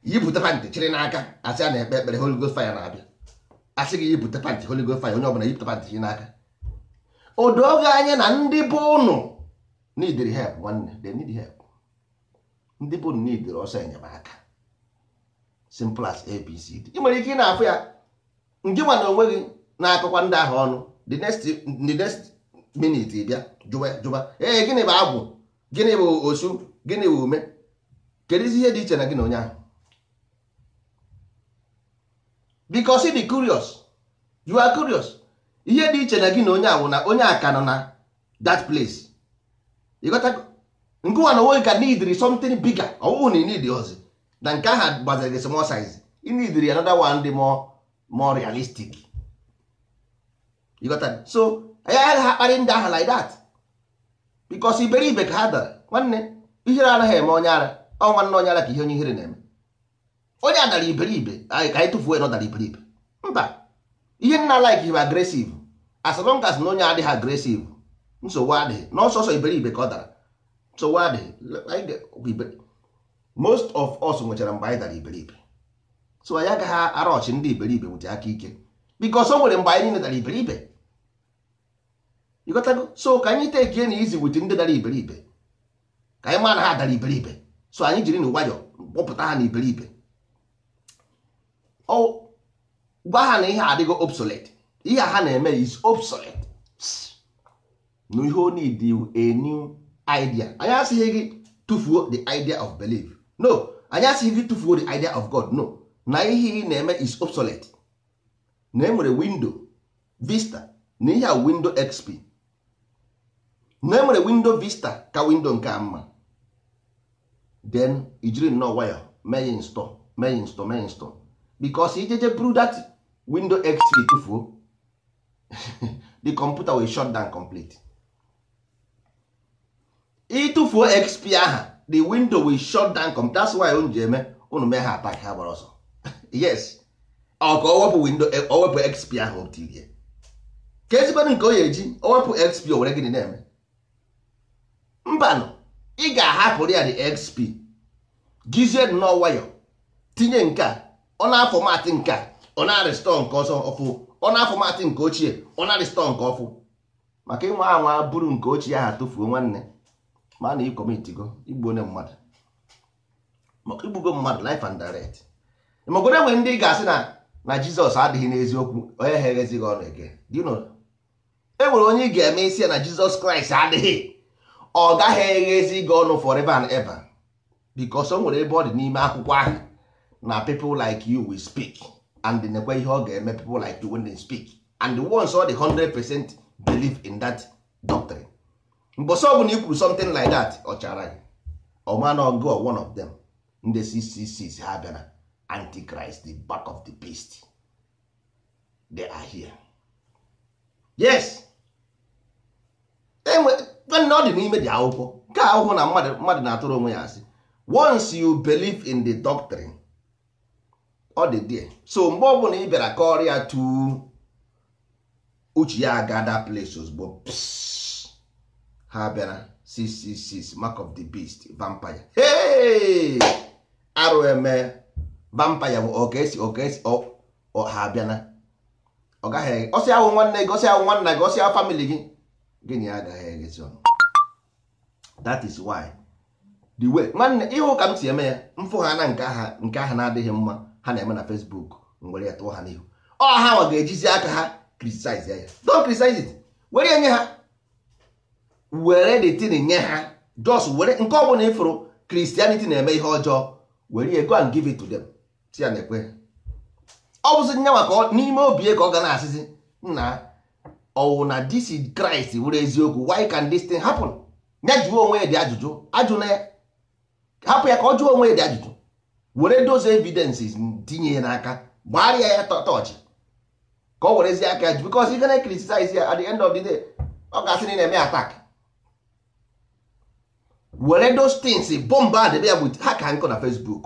yibute pantị chịrị n'aka asị a na-ekpe ekpere Holy Ghost fire na-abịa asị gị yibute pantị Holy Ghost fire onye ọbụla yibute pantị chịrị n'aka odoge anya na ndị bụ ụnụ n'idiri help nwanne de need help ndị bụ ụnụ n'idiri ọsọ enyemaka simple as abcd ị nwere ike ị na-afụ ya ndị nwa onwe gị na-akọkwa ndị ahụ ọnụ the next the next minute bịa jụba jụba ee gịnị bụ agwụ gịnị bụ osu gịnị bụ ume kedụ ihe dị iche na gị na onye ahụ because dị curious you are curious ihe dị iche na gị na onye awụ na onye aka nọ na that place nkụwa na onwe ka needri something bigger ọwụwụ na need ozi na nke aha gbaziri gị small size i needri another one dị more more realistic so ya agaghị ha kparị ndị aha like that because iberibe ka ha dara nwanne ihere anaghị eme onye ara ọ nwanne onye ara ka ihe onye ihere na-eme onye a dara iberibe anyị ka anyị tụfuo nọ dara iberibe mba ihe nna like bụ agresiv as long as na onye adịghị agresiv nsogbu adịghị n'ọsọsọ iberibe ka ọ dara nsogbu adịghị most of us nwechara mgbe anyị dara iberibe so anyị agaghị arọchị ndị iberibe wute aka ike because o nwere mgbe anyị niile dara iberibe ịghọtago so ka anyị tekie na izi wute ndị dara iberibe ka anyị ma na ha dara iberibe so anyị jiri na nwayọ kpọpụta ha na iberibe gwa ha na ihe adịgo obsolete ihe ha na-eme is obsolete na ihe o need a new idea anyị asịghị gị tụfuo the idea of belief no anyị asịghị gị tụfuo the idea of god no na ihe ị na-eme is obsolete na enwere windo vista na ihe a windo xp na enwere windo vista ka windo nke a mma then ijiri nnọọ wayo, mee ya install mee ya install mee ya install because ijeje buru dat window xp tufuo the computer will shut down complete ịtụfuo xp aha the window will shut down complete that's why unu ji eme unu mee ha atak ha gbara ọsọ yes o ka owepụ window owepụ e, xp ahụ otirie ka ezigbodo nke o ya eji owepụ xp o were gịnị na-eme mbanụ ị ga-ahapụrụ ya the xp gize nnọọ nwayọ tinye nke a ọ na-afọ matị nke a ọ na-arịstọ nke ọsọ ọfụ ọ na-afọ matị nke ochie ọ na-arịstọ nke ọfụ maka ịnwa anwa bụrụ nke ochie ahụ tụfuo nwanne ma na ịkọmitigo igbu onye mmadụ maka igbugo mmadụ life and direct magoro enwe ndị ga-asị na na jizọs adịghị n'eziokwu onye ha eghezighị ọnụ eke e nwere onye ị ga-eme isi ya na jizọs kraịst adịghị ọ gaghị eghezi gị ọnụ forever and ever because o nwere ebe ọ dị n'ime akwụkwọ ahụ na people like you will speak and nekwe ihe ọ ga-eme people like you wen they speak and once all the 100 percent believe in that doctrine mbosi ọbụla i kwuru something like that ọ chara gị ọmanago one of them ndị cc ha bịara antichrist the back of the beast they are here yes enwe ọ dị n'ime dị akwụkwọ nke akwụkwọ na mmadụ na-atụrụ onwe ya asị once you believe in the doctrine ọ dị die so mgbe ọbụla ị bịara ka ọrịa tu uche ya aga that place ozugbo ha bịara 666 mark of the beast vampire hey! arụ eme vampire bụ okesi okesi oh, oh, ha abịana ọ gaghị ọsị ahụ nwanne gị ọsị ahụ nwanna gị ọsị ahụ famili gị gịnị agaghị eghezi ọnụ that is why the way nwanne ịhụ ka m si eme ya mfụ ha na nke aha na-adịghị mma ha na-eme na Facebook were ya tụọ ha n'ihu ọ ha nwa ga-ejizi aka ha criticize ya don't criticize it were ya nye ha were the thing nye ha just were nke ọ bụla ịfụrụ Christianity na-eme ihe ọjọọ were ya go and give it to them si ya na-ekwe ọ bụzi nye maka n'ime obi ka ọ ga na-asịzi nna ọwụ na this kraịst Christ were eziokwu why can this thing happen ya jụọ onwe ya dị ajụjụ ajụ na ya hapụ ya ka ọ jụọ onwe ya dị ajụjụ were those evidences tinye ya n'aka gbarịa ya tọchị ka o werezie aka ji bikos ị gana criticize ya at the end of the day ọ ga na eme atak were those things bọmba a debe ya bụ ha ka nkụ na facebook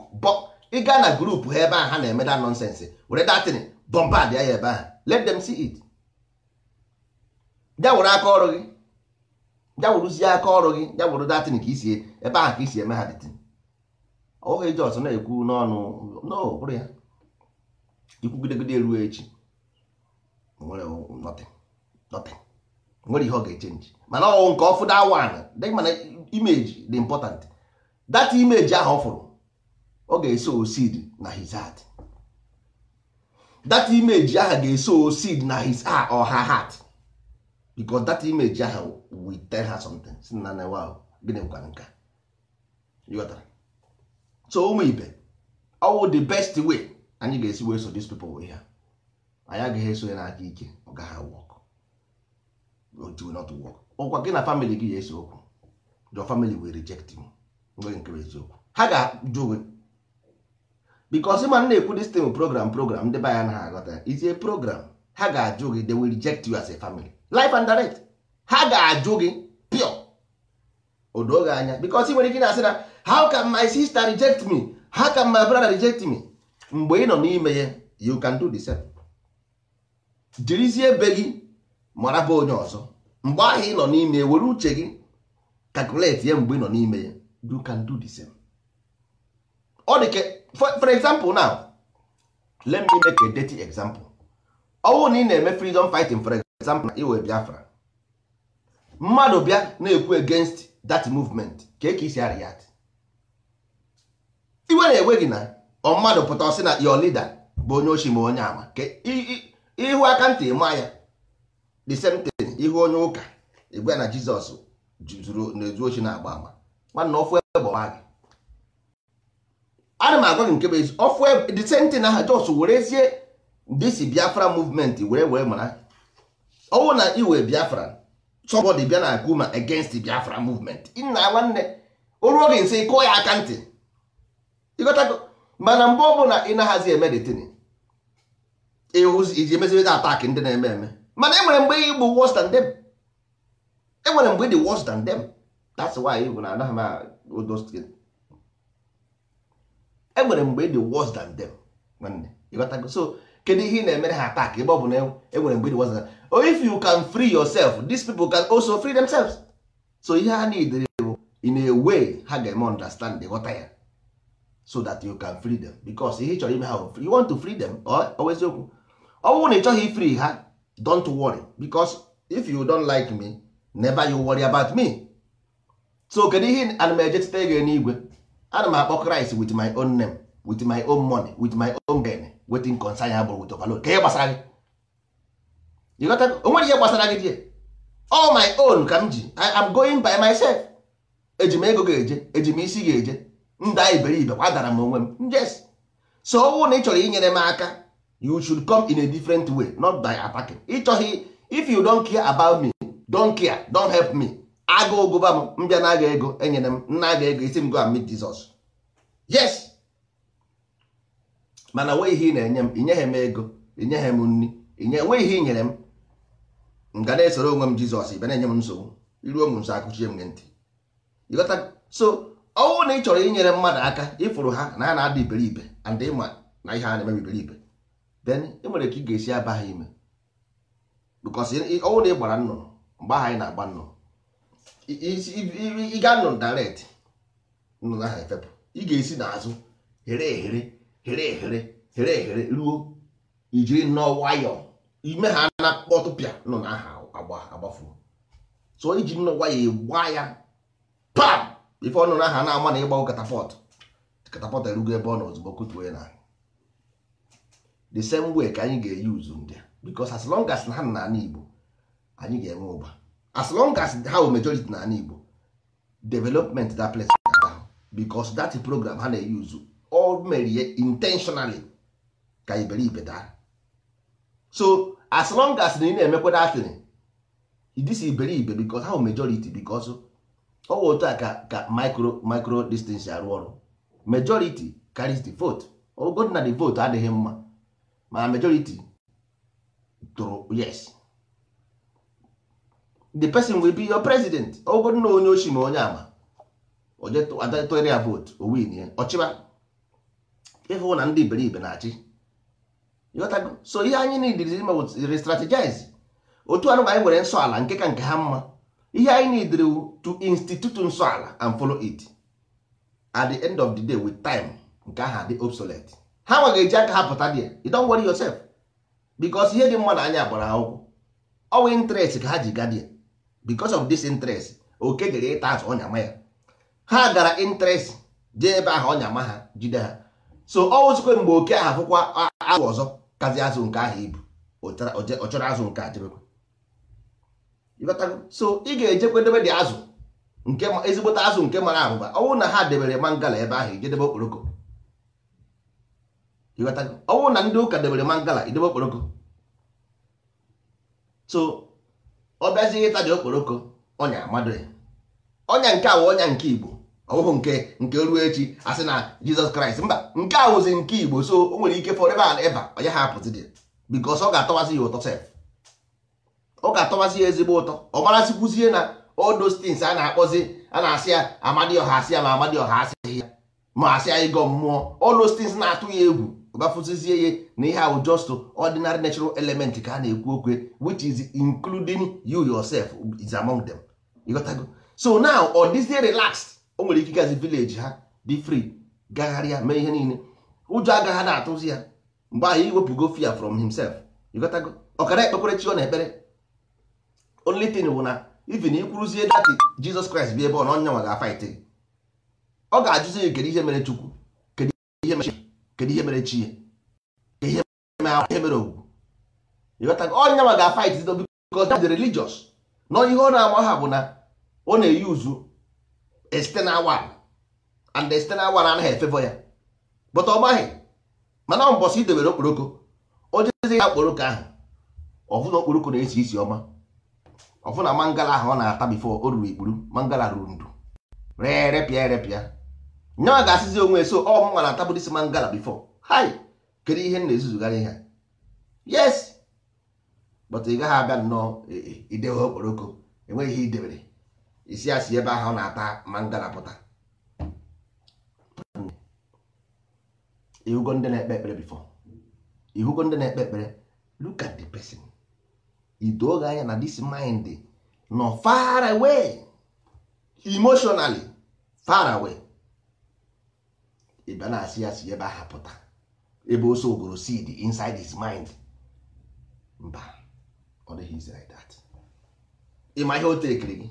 ị gaa na grupu ha ebe ahụ ha na-eme da nonsense were datin bọmba dị ya ebe ahụ let them see it ya were aka ọrụ gị ya weruzie aka ọrụ gị ya were datin ka isi ebe ahụ ka isi eme ha datin oge jọs na-ekwu n'ọnụ ya ikwugidegide ruo echi nwere ihe ọ ga-echenji mana nke ọfụ da wan mana imeji dị important that imeji ahụ ọ fụrụ ọ ga-eso osid na his heart that imeji ahụ ga-eso osid na his or her heart imeji ahụ si na na gịnị gwara nke so ụmụ ibe ọwụ the best way anyị ga-esi wee so these people wee ha anyị agaghị eso ya n'aka ike ọ gaghị work it will not work ọkwa gị na family gị ya esi okwu your family will reject you nwe nke eziokwu ha ga-ajụ gị because ma na-ekwu this thing program program ndị be ya na ha aghọta it's a program ha ga-ajụ gị they will reject you as a family life and direct ha ga-ajụ gị pure odoge anya because ị nwere ike na-asị na how can my sister reject me how can my brother reject me mgbe ị nọ n'ime ya you can do the same jirizie be gị mara bụ onye ọzọ mgbe ahụ ị nọ n'ime ya were uche gị calculate ya mgbe ị nọ n'ime ya you can do the same ọ dị ka for example now let me make a dirty example ọnwụ na ị na-eme freedom fighting for example na iwe biafra mmadụ bịa na-ekwu against that movement ka e ka isi arịa. iwe na-ewe gị na ọ mmadụ pụta ọsị na your leader bụ onye ochi ma onye ama ịhụ aka ntị ma ya the same thing ihu onye ụka igwe na Jizọs na-ezu ochi na-agba ama nwanna ofu ebe gị ana m agwa gị nke bụ ezi ofu the same thing aha Jos werezie disi Biafra movement were were mara ọnwụ na iwe Biafra somebody bịa na ma against Biafra movement nna nwanne o ruo gị nsị kụọ ya aka ntị ịghọtago mana mgbe ọ bụla ị na-ahazi eme detin iji emezirịta atak ndị na-eme eme mana enwere mgbe ị bụ worse than them enwere mgbe ị dị worse than them that's why ị bụ na anaghị m odostin enwere mgbe ị dị worse than them nwanne ịghọtago so kedu ihe ị na-emere ha atak ebe ọ bụ na enwere e mgbe ị dị worse than them oh, if you can free yourself these people can also free themselves so ihe ha need bụ in a way ha ga-eme understand ghọta ya so that you can free them because ihe chọrọ ime ha you want to free them oweziokwu ọ bụrụ na ị chọghị free ha don't worry because if you don't like me never you worry about me so kedu ihe ana m eje teta n'igwe ana m akpọ Kraịst with my own name with my own money with my own gain wetin concern ya bụrụ with overload ka ihe gbasara gị onwere ihe gbasara gị die all my own ka m ji I am going by myself eji m ego ga-eje eji m isi ga-eje nda iberibe kwadara m onwe m njes so ọnwụ na ị chọrọ inyere m aka you should come in a different way not by attacking chọghị if you don't care about me don't care don't help me aga ụgụba m mbịa na aga ego enyere m nna aga ego isi m go and meet Jesus yes mana nwee ihe ị na-enye m inyeghị m ego inyeghị m nri nwee ihe ị nyere m m na-esoro onwe m Jizọs ibe na-enye m nsogbu iruo m nso akụchie m ntị so ọnwụ na ị chọrọ inyere mmadụ aka ịfụrụ ha na a na-ada iberibe and ịma na ihe a na-eme iberibe then ị nwere ka ị ga-esi aba ha ime because ọnwụ na ị gbara nnụnụ mgbe ahụ anyị na-agba nnụnụ ị ga nnụnụ direct nnụnụ ahụ efepụ ị ga-esi n'azụ here ehere here ehere here ehere ruo ijiri nnọọ nwayọọ ime ha na kpọtụpịa nnụnụ ahụ agbafuo so iji nnọọ nwayọọ gbaa ya pam ife ọnụ aha na-ama na ịgbanwe katapọt katapọt erugo ebe ọ nọ ozugbo kutuo ya na the same way ka anyị ga-eyuzu ndị because as long as ha na ala Igbo anyị ga-enwe ụba as long as ha wụ majority na ala Igbo development that place because that program ha na eyi uzu all merie intentionally ka iberibe daa so as long as na ị na-emekwa datin this iberibe because ha wụ majority because ọ ọwa otu a ka ka micro micro distance arụ ọrụ majority carries the vote ogo na the vote adịghị mma ma majority tụrụ yes the person will be your president ogo na onye oshi ma onye ama adatụnyere ya vote o win ya ọchịba ịhụ na ndị iberibe na-achị so ihe anyị nidirizi ime wụ restrategize otu anụ anyị nwere nsọ ala nke ka nke ha mma ihe anyị need to institute nso ala and follow it at the end of the day with time nke aha dị obsolete ha nwa eji aka ha pụta dị you don't worry yourself because ihe dị mma na anya gbara akwụkwọ ọwa interest ka ha ji gadị ya because of this interest oke jere ịta azụ ọnya ya ha gara interest jee ebe aha ọnya ha jide ha so ọ wụzikwe mgbe oke ahụ afụkwa azụ ọzọ kazi azụ nke ahụ ibu ọ chọrọ azụ nke a so ị ga-ejekwa debe dị azụ nke ezigbote azụ nke mara abụba ọwụ na ha debere mangala ebe ahụ ijedebe okporoko ọwụ na ndị ụka debere mangala idebe okporoko so ọ bịazighị ịta dị okporoko ọnya amadụ ya ọnya nke awụ ọnya nke igbo ọwụhụ nke nke ruo echi asị na jizọs kraịst mba nke awụzi nke igbo so o nwere ike fọrọ ebe ala eba onye ha apụzi dị bikos ọ ga-atọwazi ya ụtọ sef ọ ga-atọbazi ya ezigbo ụtọ ọ marazikwuzie na odo stins a na-akpọzi a na-asị ya amadioha asị ya ma amadioha asịghị ya ma asị ya ịgọ mmụọ odo those na-atụ ya egwu gafuzizie ya na ihe ahụ just ordinary natural element ka a na-ekwu okwe which is including you yourself is among them ịghọtago so now ọ dịzie relaxed o nwere ike gazi village ha dị free gagharịa mee ihe niile ụjọ agaghị na-atụzi ya mgbe ahụ iwepụgo fear from himself ịghọtago ọkara ekpekwere chi ọ na-ekpere only thing bụ na even ikwuruzie dati jizọs kraịst bi ebe ọ na onye nwa ga-afaịtị ọ ga-ajụzi gị kedu ihe mere chukwu kedu ihe mere kedu ihe mere chi ihe mere ogwu ịghọtago onye nwa ga-afaịtị because that's the religious na ihe ọ na-ama ha bụ na ọ na-eyuzu external one and the anaghị efevọ ya but ọ maghị mana ọ mbọsị idebere okporoko o jezi ya okporoko ahụ ọ bụ na okporoko na-esi isi ọma ọfụ na mangala ahụ ọ na-ata bifo o ruru ikpuru mangala ruru ndụ pịa repịa erepịa nyawa ga-asịzi onwe so ọ mụnwa na-atabụdisi mangala bifo hai kedu ihe na-ezuzugharị ihe yes but ị gaghị abịa nnọọ e, e, idewe okporoko enweghị ihe idebere isi asị ebe ahụ ọ na-ata mangala pụta ihugo ndị na-ekpe ekpere bifo ihugo ndị na-ekpe ekpere look at the ido oge anya na this mind nọ far away emotionally far away ịbịa na-asị ya si ebe aha pụta ebe oso ogoro seed inside his mind mba ọ dịghị izi like that ịma ihe o tekiri gị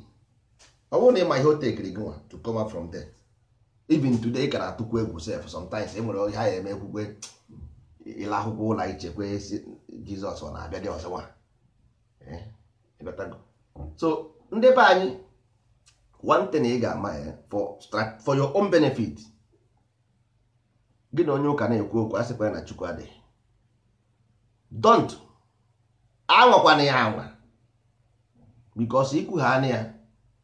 ọ bụrụ na ịma ihe o tekiri gị nwa to come up from there even today ị ka na-atụkwu egwu sef sometimes e nwere ha ya eme ekwukwe ịla akwụkwọ ụlọ ichekwa jizọs ọ na-abịa dị ọzọ nwa Eh, mm. so ndị be anyị one thing ị ga-ama eh, for your own benefit gị na onye ụka na-ekwu okwu a sịkwa na chukwu adịghị don't anwakwana ya anwa because ikwugha na ya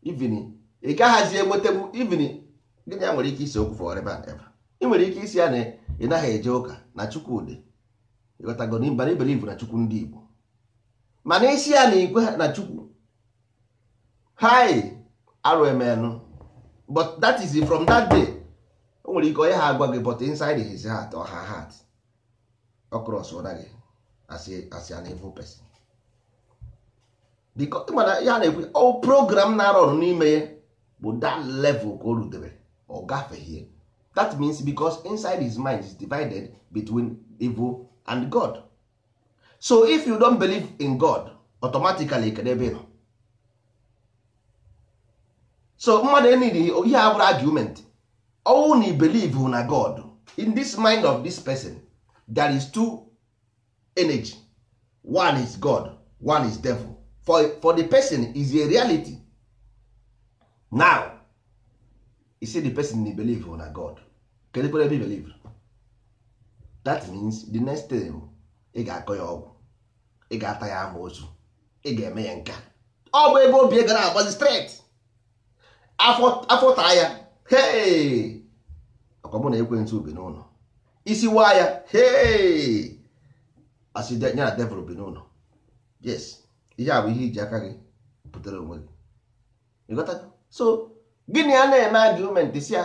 even ị gaghazi enwetebu even gịnị ya nwere ike isi okwu for ever and ever ị nwere ike isi ya na ị naghị eje ụka na chukwu dị ịghọtago na iberibe na chukwu ndị Igbo mana isi ya na ikwe na chukwu hi rmn but that is from that day o nwere ike onye ha agwa gị but inside his heart or her heart across ụra gị as an evil person because mana ya na-ekwu ọ program na-arụ ọrụ n'ime ya bụ that level ka o rudebere ọ gafeghie that means because inside his mind is divided between evil and God so if you don't believe in god automatically kedu ebe nọ so mmadụ enidi ihe abụrụ argument ọnwụ na believe na god in this mind of this person there is two energy one is god one is devil for, for the person is a reality now you see the person na believe na god kedu kwere ebe believe that means the next thing ị ga-akọ ya ọgwụ ị ga-ata ya ama otu ị ga-eme ya nka ọ bụ ebe obi gara agbazi straight afọ taa ya hee ọkwa mụ na ekwentị ubi n'ụlọ isi waa ya hee asị ya na devil bi n'ụlọ yes ihe a bụ ihe iji aka gị pụtara onwe gị so gịnị a na-eme argument si ya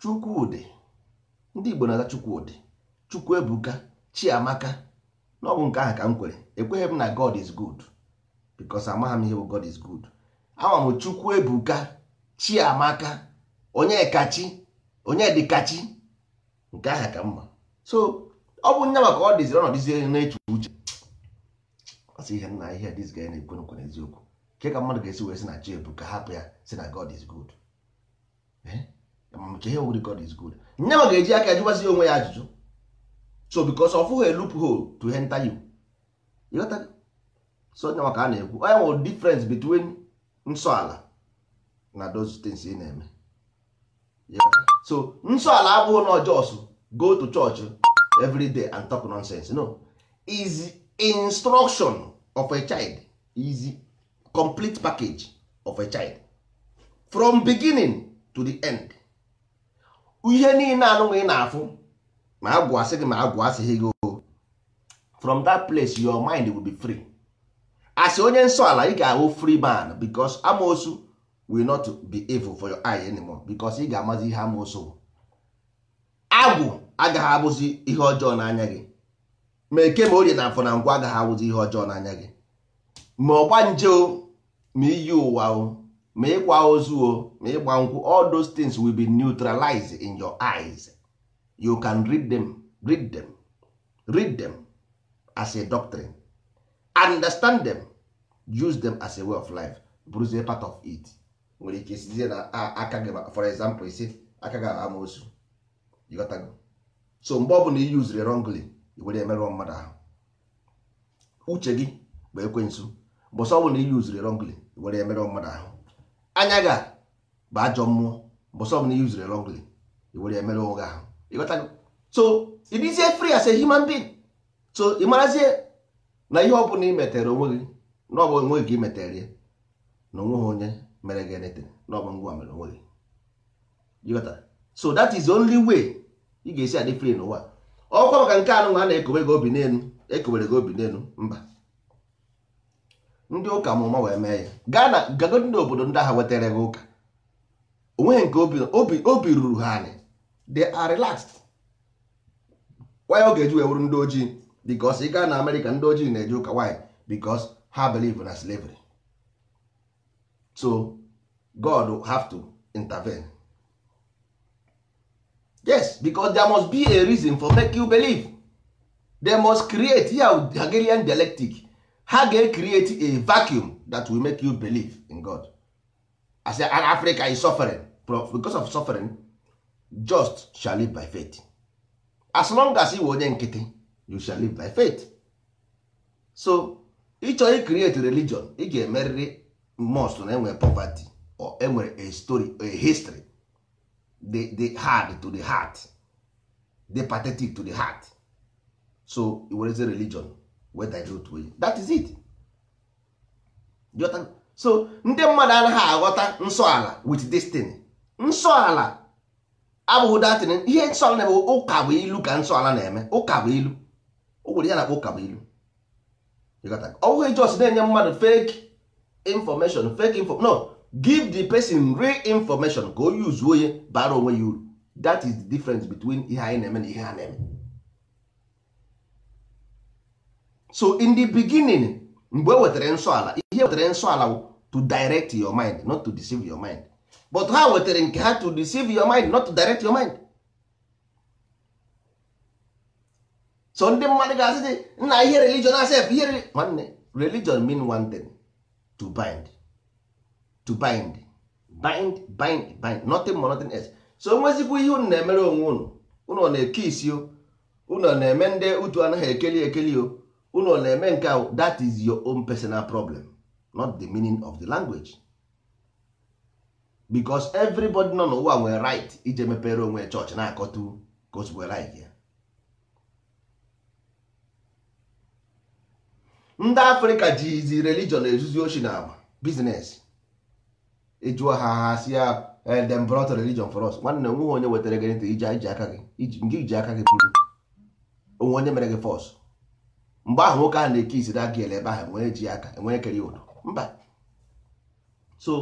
Chukwudị ndị Igbo na-aza Chukwudị Chukwuebuka Chiamaka n'ọbụ nke ahụ ka m kwere ekweghị m na god is good because amaghị m ihe bụ god is good ama m chukwu ebuka chiamaka onye kachi nke ahụ ka mma so ọ bụ nye maka ọ dịziri ọ nọdịzie na-eche uche ọsị ihe nna ihe dis guy na-ekwe nkwe n'eziokwu nke ka mmadụ ga-esi wee si na chi ebuka hapụ ya si na god is good ee ihe god is good nye ma ga-eji aka jụgbazi onwe ya ajụjụ so because of a loophole to enter you you got that so nya maka a na-ekwu onye nwere difference between nsọ ala na those things ị na-eme so nsọ ala abụghị na just go to church every day and talk nonsense no is instruction of a child is complete package of a child from beginning to the end ihe niile anụghị na-afụ ma agwụ asị gị ma agwụ asịghị gị o from that place your mind will be free as onye nsọ ala ị ga-ahụ free man because amosu will not be evil for your eye anymore because ị ga-amazi ihe amosu agwụ agaghị abụzi ihe ọjọọ n'anya gị ma eke ma orie na afọ na ngwa agaghị abụzi ihe ọjọọ n'anya gị ma ọgba nje o ma iyi ụwa o ma ịkwa ozu o ma ịgba nkwụ all those things will be neutralized in your eyes you can read them read them read them as a doctrine understand them use them as a way of life bụrụzie part of it nwere ike sizie na aka gị for example isi aka gị amaosu ịghọtago so mgbe na i yuziri wrongly were emerụọ mmadụ ahụ uche gị bụ ekwensu mbọsọ na i yuziri wrongly were emerụọ mmadụ ahụ anya gị bụ ajọ mmụọ mbọsọ ọbụla i yuziri wrongly were emerụ ụgha ahụ ịghọtago so ịdịzie free as a human being so ị marazie na ihe ọ bụla ị metere onwe gị na onwe gị metere ya na onweghị onye mere gị anything na ngwa mere onwe gị ịghọta so that is only way ị ga-esi adị free n'ụwa ọkwa maka nke anụ a na-ekowe gị obi n'elu ekowere gị obi n'elu mba ndị ụka mụma wee mee ya gaa na gagodi n'obodo ndị agha wetara gị ụka onweghị nke obi obi ruru ha anyị they are relaxed why ọ ga-eji wee ndị ojii because ị gaa na Amerịka ndị ojii na-eje ụka why because ha believe na slavery so God have to intervene yes because there must be a reason for make you believe they must create here with Hegelian dialectic ha ga-create a vacuum that will make you believe in God as an Africa is suffering because of suffering just shall live by faith as long as you onye nkịtị you shall live by faith so ịchọ i religion ị ga-emerịrị most na enwere poverty or enwere a story a history the, hard to the heart the pathetic to the heart so wereze religion wee to onye that is it so ndị mmadụ anaghị aghọta nsọ ala with destiny nsọ ala abụghị datin ihe nsọ na-eme ụka bụ ilu ka nsọ ala na-eme ụka bụ ilu ogwere ya na-akpọ ụka bụ ilu ọbụghị jos na-enye mmadụ fake information fake info no give the person real information ka use yuzuo ya bara onwe ya uru that is the difference between ihe anyị na-eme na ihe ha na-eme so in the beginning mgbe e wetara nsọ ala ihe wetara nsọ ala to direct your mind not to deceive your mind but ha wetere nke ha to deceive your mind not to direct your mind so ndị mmadụ ga-asị dị nna ihe religion asef ihe nwanne religion mean one thing to bind to bind bind bind bind nothing more nothing else so nwezikwa ihe unu na-emere onwe unu unu na-eke isi o unu na-eme ndị utu anaghị ekeli ekeli o unu na-eme nke that is your own personal problem not the meaning of the language because everybody nọ n'ụwa nwere right iji mepere onwe chọọchị na-akọtu ka o zugbo right ya ndị afrịka jizi religion ezuzi oshi na agba bizines ịjụọ ha ha si ya eh, dem brought religion for us nwanne onweghị onye wetara gị ntị iji aka gị nke iji aka gị bụrụ onwe onye mere gị fọs mgbe ahụ nwoke ahụ na-eke isi aka ele ebe ahụ enwere ji aka enwere ekere ụdọ mba so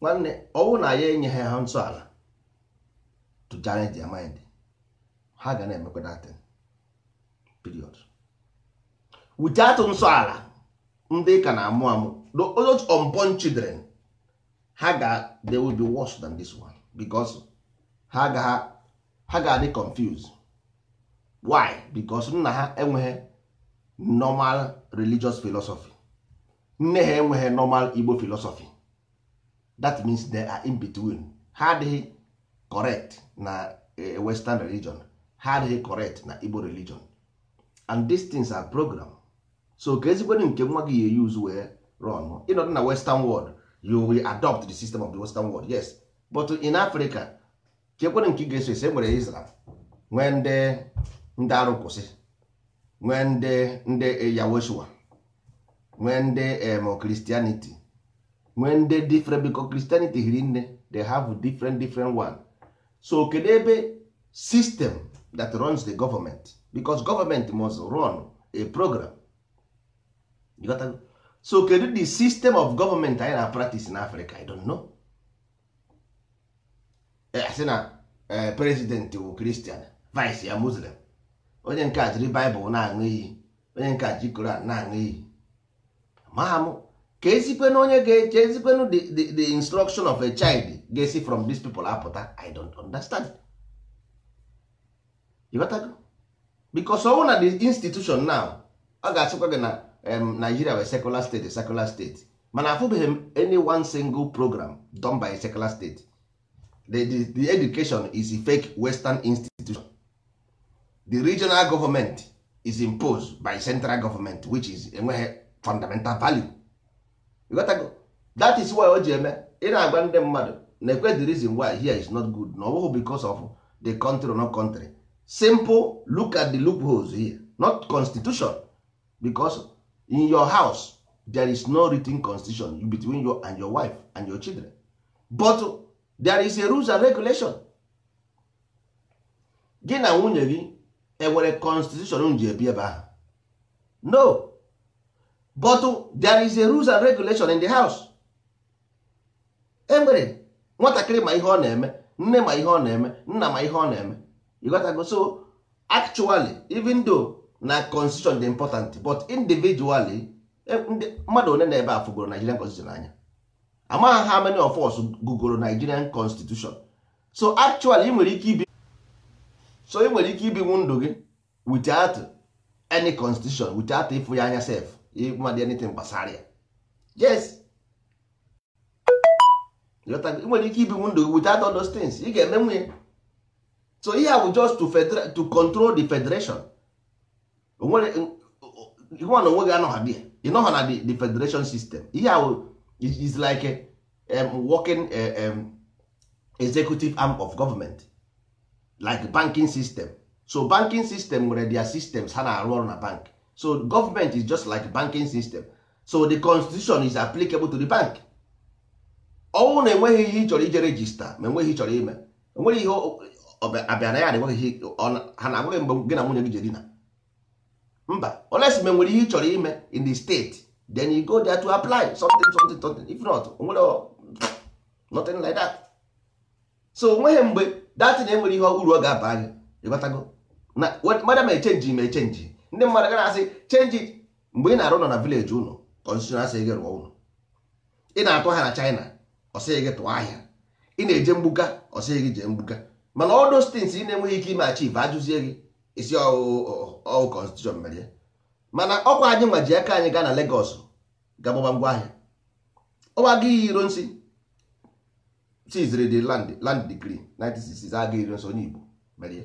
nwanne ọnwụ na ya enyeghị ha ntọala to challenge their mind ha ga na-emekwa datin period without nsọala ndị ka na-amụ amụ those unborn children ha ga they will be worse than this one because ha ga ha ga adị confuse why because nna ha enweghị normal religious philosophy nne ha enweghị normal Igbo philosophy that means they are in between ha adịghị correct na eh, western religion ha adịghị correct na igbo religion and these things are program so ka ezikwenu nke nwa gị ya use wee run ịnọdụ na western world you will adopt the system of the western world yes but in africa chekwenu nke ị ga-eso ese nwere israel nwee ndị ndị arụ kwụsị nwee ndị ndị eh, yaweshua nwee ndị em christianity when dey different because Christianity hiri nne they have different different one so kedu ebe system that runs the government because government must run a program you got so kedu the system of government anyị na practice in Africa I don't know eh, asị na eh, president bụ Christian vice ya Muslim onye nke a jiri Bible na-aṅụ iyi onye nke a ji Koran na-aṅụ iyi maha ka ezikwenu onye ga-eche ezikwenu the instruction of a child ga-esi from dis people apụta i don't understand ịghọtago because ọwụ na the institution now ọ ga-asịkwa gị na Nigeria wee secular state secular state mana afụbeghị m any one single program don by a secular state the, education is a fake western institution the regional government is imposed by central government which is enweghị fundamental value ịghọtago that is why o ji eme ị na-agwa ndị mmadụ na ekwe the reason why here is not good na ọ bụghị because of the country or not country simple look at the loopholes here not constitution because in your house there is no written constitution between you and your wife and your children but there is a rules and regulation gị na nwunye gị enwere constitution ji ebi ebe ahụ no but there is a rules and regulation in the house enwere nwatakịrị ma ihe ọ na-eme nne ma ihe ọ na-eme nna ma ihe ọ na-eme igotago so actually even though na constitution dị important but individually e, mmadụ one na ebe a fụgoro Nigerian constitution anya amaghị ha many of us gụgoro Nigerian constitution so actually ị nwere ike ibi so ị ike ibinwu ndụ gị without any constitution without ịfụ ya anya sef ịmadị anything gbasara ya yes ị nwere ike ibi ndụ without all those things ị ga-eme nwunye so ihe bụ just to, to control the federation nwa na onwe gị anọgha bịa ha na the federation system ihe a bụ is like a, um, working uh, um, executive arm of government like banking system so banking system nwere their systems ha na-arụ ọrụ na bank so government is just like banking system so the constitution is applicable to the bank ọnwụ na enweghị ihe ị chọrọ ije regista ma enweghị ịchọrọ ime enweghị ihe abịa na ya na enweghị ha na agwaghị mgbe gị na nwunye gị jere dina mba oles ma nwere ihe ị chọrọ ime in the state then you go there to apply something something something if not onwere nothing like that so onweghị mgbe datin enwere ihe uru ọ ga-aba anyị ịgbatago na mada ma echenji ma echenji ndị mmadụ ga asị change mgbe ị na-arụ ụlọ na vileji ụlọ konstitushon asị gị rụọ ụlọ ị na-atụ ahịa na china ọsịghị gị tụọ ahịa ị na-eje mgbuga ọsịghị gị jee mgbuga mana ọdụ stins ị na-enweghị ike ime achieve ajụzie gị isi ọwụ konstitushon mere mana ọkwa anyị nwa ji aka anyị gaa na legos gagbaba ngwa ahịa ọwa gị iro nsi chiziri land degree 1966 aga iro nso onye igbo mere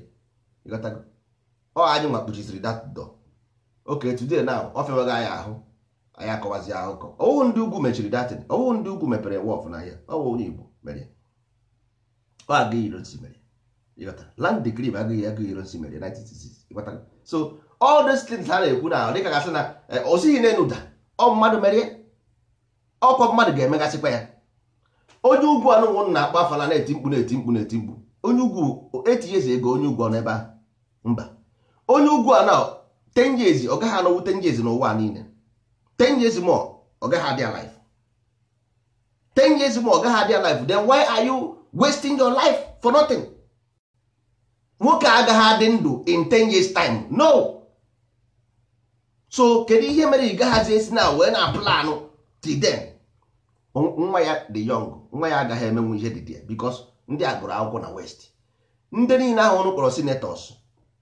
ọ anyị nwa kpuchiziri datdọ oke today na ọ fịawaghị anyị ahụ anyị akọwazi akụkọ ọwụwụ ndị ugwu mechiri datin ọwụwụ ndị ugwu mepere wọf n'ahịa ọwụ onye igbo mere ọ agaghị irosi mere land decree agaghị agaghị irosi mere 1966 so all these things ha na-ekwu na dịka gasị na eh, osighi na-enuda ọ mmadụ merie ọkwa mmadụ ga-emegasịkwa ya onye ugwu anụnwụ na-akpa afala na-eti mkpu na-eti mkpu na-eti mkpu onye ugwu etinyezi ego onye ugwu ọ n'ebe a mba onye ugwu a na years ọ gaghị anọwu 10 years n'ụwa niile 10 years more ọ gaghị adị alive 10 years more ọ gaghị adị alive then why are you wasting your life for nothing nwoke agaghị adị ndụ in 10 years time no so kedu ihe mere ị gaghazi esi na wee na planụ till nwa ya dị yong nwa ya agaghị emenwu ihe dị bikos ndị a gụrụ akwụkwọ na west ndị niile ahụ ọnụ kpọrọ senators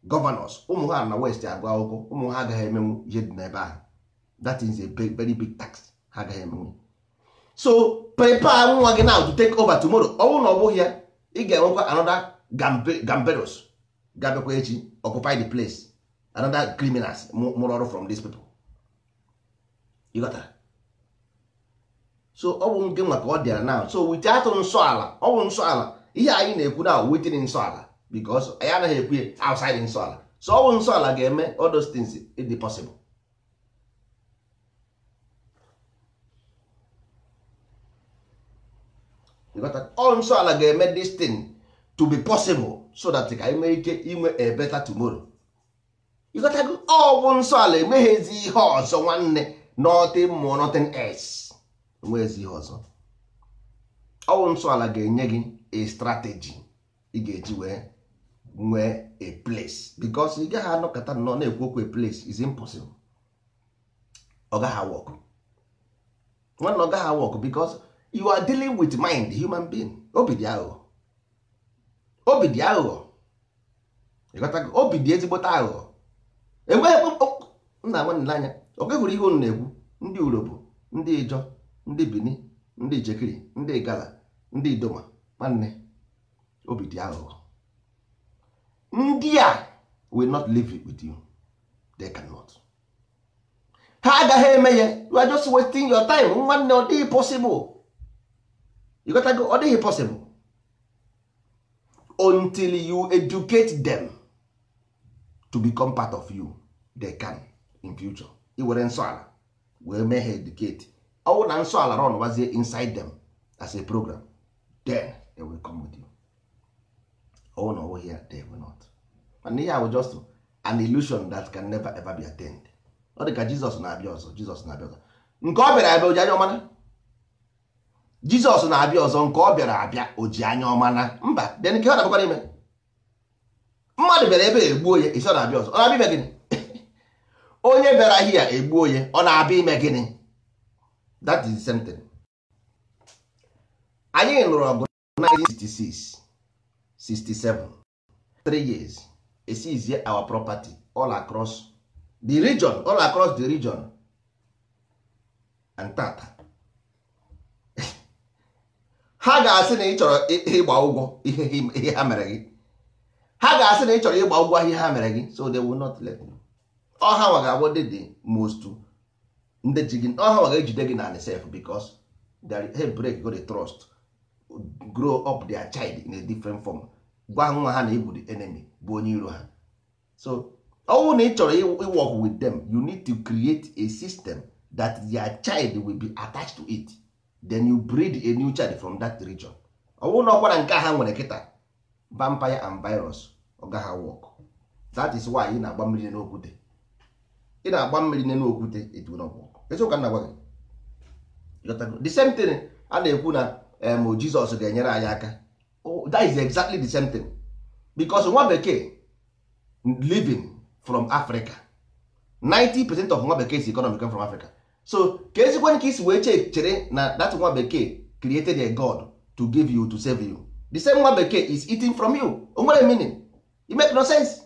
gọvanọs ụmụ ha na west agụ akwụkwọ ụmụ ha agaghị emenwu ihe dị n'ebe ahụ that is a very big tax ha agaghị emenwu so prepare nwa gị now to take over tomorrow ọ bụrụ na ọ bụghị ya ị ga-enwekwa anoda gamberos gabekwa echi occupy the place anoda criminals mụrụ ọrụ from these people ịghọtara so ọ bụ nke nwa ka ọ dịara now so wit atụ nsọ ala ọ bụ nsọ ala ihe anyị na-ekwu na wetin nsọ ala because anyị anaghị ekwu outside nsọ ala so ọ bụ nsọ ala ga-eme all those things ịdị possible ọ nsọ ala ga-eme this thing to be possible so that ka anyị nwee ike inwe a better tomorrow ịghọtago ọ bụ nsọ ala ezi ihe ọzọ nwanne northern more nothing else ezi ihe ọzọ ọ bụ nsọ ala ga-enye gị a strategy ị ga-eji wee nwee a place because ị gaghị anọkọta nnọọ na-ekwu okwu a place is impossible ọ gaghị awọk nwanne ọ gaghị awọk because you are dealing with mind human being obi dị aghụghọ obi dị aghụghọ obi dị ezigbote aghụghọ enweghị nna nwanne n'anya ọ gaghịhụrụ ihe unu na-ekwu ndị urobo ndị ijọ ndị bini ndị jekiri, ndị gala ndị idoma nwanne obi dị aghụghọ ndị a will not live with you they cannot ha agaghị eme ya you are just wasting your time nwanne ọ dịghị possible you gotta go ọ dịghị possible until you educate them to become part of you they can in future iwere nsọ ala wee mee ha educate ọwụ na nsọ ala run gbazie inside them as a program then they will come with you. ọwụ na ọwụghị ya they were not mana ihe ahụ just an ilusion that can never ever be attained ọ dị ka Jizọs na-abịa ọzọ Jizọs na-abịa ọzọ nke ọ bịara abịa oji anya ọmana Jizọs na-abịa ọzọ nke ọ bịara abịa oji anya ọmana mba bịa nke ọ na-abịakwara ime mmadụ bịara ebe egbuo ya isi ọ na-abịa ọzọ ọ na-abịa ime gịnị onye bịara hia egbuo ya ọ na-abịa ime gịnị that is the same thing anyị nụrụ ọgụ 1966 67 3 years esizie our property all across the region all across the region and tata ha ga-asị na ị chọrọ ịgba ụgwọ ihe ha mere gị ha ga-asị na ị chọrọ ịgba ụgwọ ihe ha mere gị so they will not let you ọha nwa ga-abụ dị dị most ndị ji gị ọha nwa ga-ejide gị na the self because they break go the trust grow up their child in a different form gwa nwa ha na ịbụ the enemy bụ onye iro ha so ọnwụ na ị chọrọ ịwork with them you need to create a system that their child will be attached to it then you breed a new child from that region ọnwụ na ọkwara nke ha nwere kịta vampire and virus ọgaha work that is why ị na-agba mmiri n'okwute ị na-agba mmiri n'okwute etu na ọgwụ eziokwu na gwa gị the same thing a na-ekwu na em um, jizọs ga-enyere anyị aka that is exactly the same thing because nwa bekee living from africa 90% of nwa bekee si economy come from africa so ka ezikwan ka isi wee che chere na that nwa bekee created a god to give you to save you the same nwa bekee is eating from you o nwere meaning it make no sense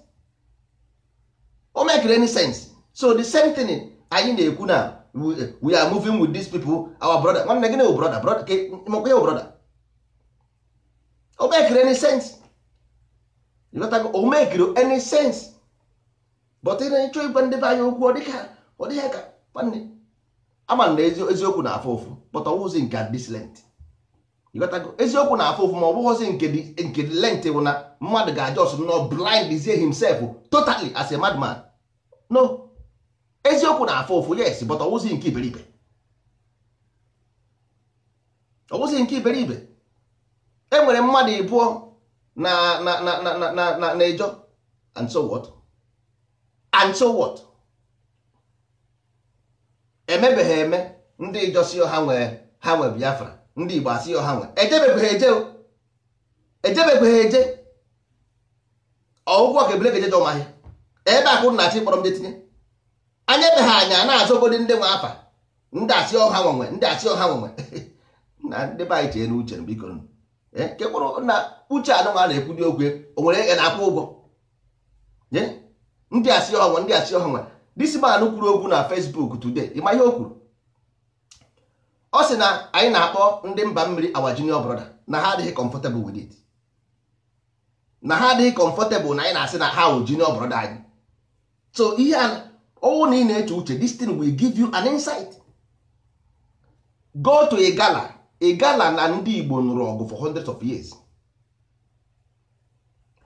o make any sense so the same thing anyị na-ekwu na we are moving with these people our brother nwanne gịnị bụ brother brother ka mekwa ya brother o mekiri any sense o mekiri any sense but ị na-achọ ịgwa ndị be anyị okwu ọ dịghị ka nwanne ama na eziokwu na-afụ ụfụ but ọ wụzi nke this lent eziokwu na-afụ ụfụ ma ọ bụghịzi nke lent bụ na mmadụ ga-ajọs nọ blind himself totally as a madman no eziokwu na afọ ofu yes but ọwụzi nke iberibe ọwụzi nke iberibe enwere mmadụ ịbụọ na na na na na na na-ejọ and so what and so what emebeghị eme ndị ijọ si ha nwee ha nwe biafra ndị igbo asị ha nwe ejebeghị eje ejebeghị eje ọgwụgwọ ka ebule ga eje jọ ebe akụ na-achị kpọrọ m je tinye anya be ha anya na-azọgodi ndị nwe afa ndị asị ọha nwenwe ndị asị ọha nwenwe na ndị be anyị chee eh, na uche biko ke kpụrụ na uche anụmanụ na-ekwudi okwu o nwere ege na-akwụ ụgwọ ndị asị ọha ndị asị ọha nwe disi anụ kwuru okwu na fesbuk today ịma ihe o kwuru ọ sị na anyị na-akpọ ndị mba mmiri awa junior brother na ha adịghị comfortable with it na ha adịghị comfortable na anyị na-asị na ha wụ junior brother anyị so ihe a ọnwụ na ị na-eche uche this thing will give you an insight go to igala igala na ndị Igbo nụrụ ọgụ for hundreds of years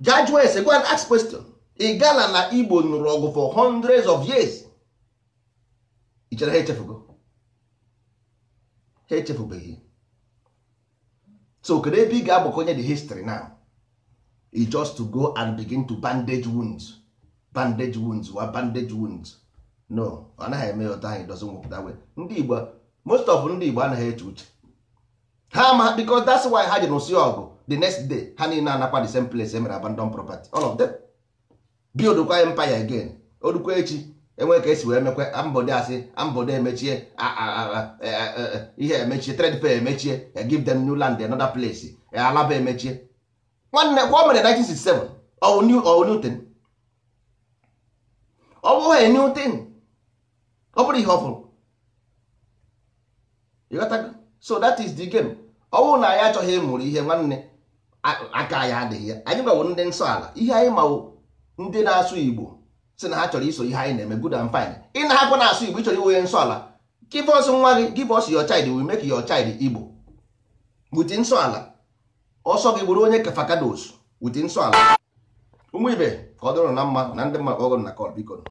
judge wes go and ask question igala na Igbo nụrụ ọgụ for hundreds of years ị chere ha echefugo ha echefubeghị so kedu ebe ị ga-agbakonye the history now e just to go and begin to bandage wounds bandage wounds wa bandage wounds no ọ naghị eme ya ụtọ anyị dozi nwụpụta wee ndị igbo most of ndị igbo anaghị eche uche ha ma because that's why ha ji nụsị ọgụ the next day ha niile anakwa the same place e mere abandon property all of them bildkwa empire again orukwa echi enwe ka esi wee mekwa mbode asị ambode emechie e, e, e, ihe emechie trade pay emechie give them new land another place alaba emechie nwanne kwa o mere 1967 ọ bụ new thing ọ bụghị new thing ọ bụrụ ihe ọ fụrụ ịghọtago so that is the game ọ bụrụ na anyị achọghị ịmụrụ ihe nwanne aka anyị adịghị ya anyị gbawo ndị nsọ ala ihe anyị mawụ ndị na-asụ igbo si na ha chọrọ iso ihe anyị na-eme good and fine ị na-akwa na-asụ igbo ịchọrọ iwe nsọ ala give us nwa gị give us your child we make your child igbo wuti nsọ ala ọsọ gị bụrụ onye kafakados wuti nsọ ala ụmụ ibe ka ọ dịrị na mma na ndị mmadụ ọgụ na kọl biko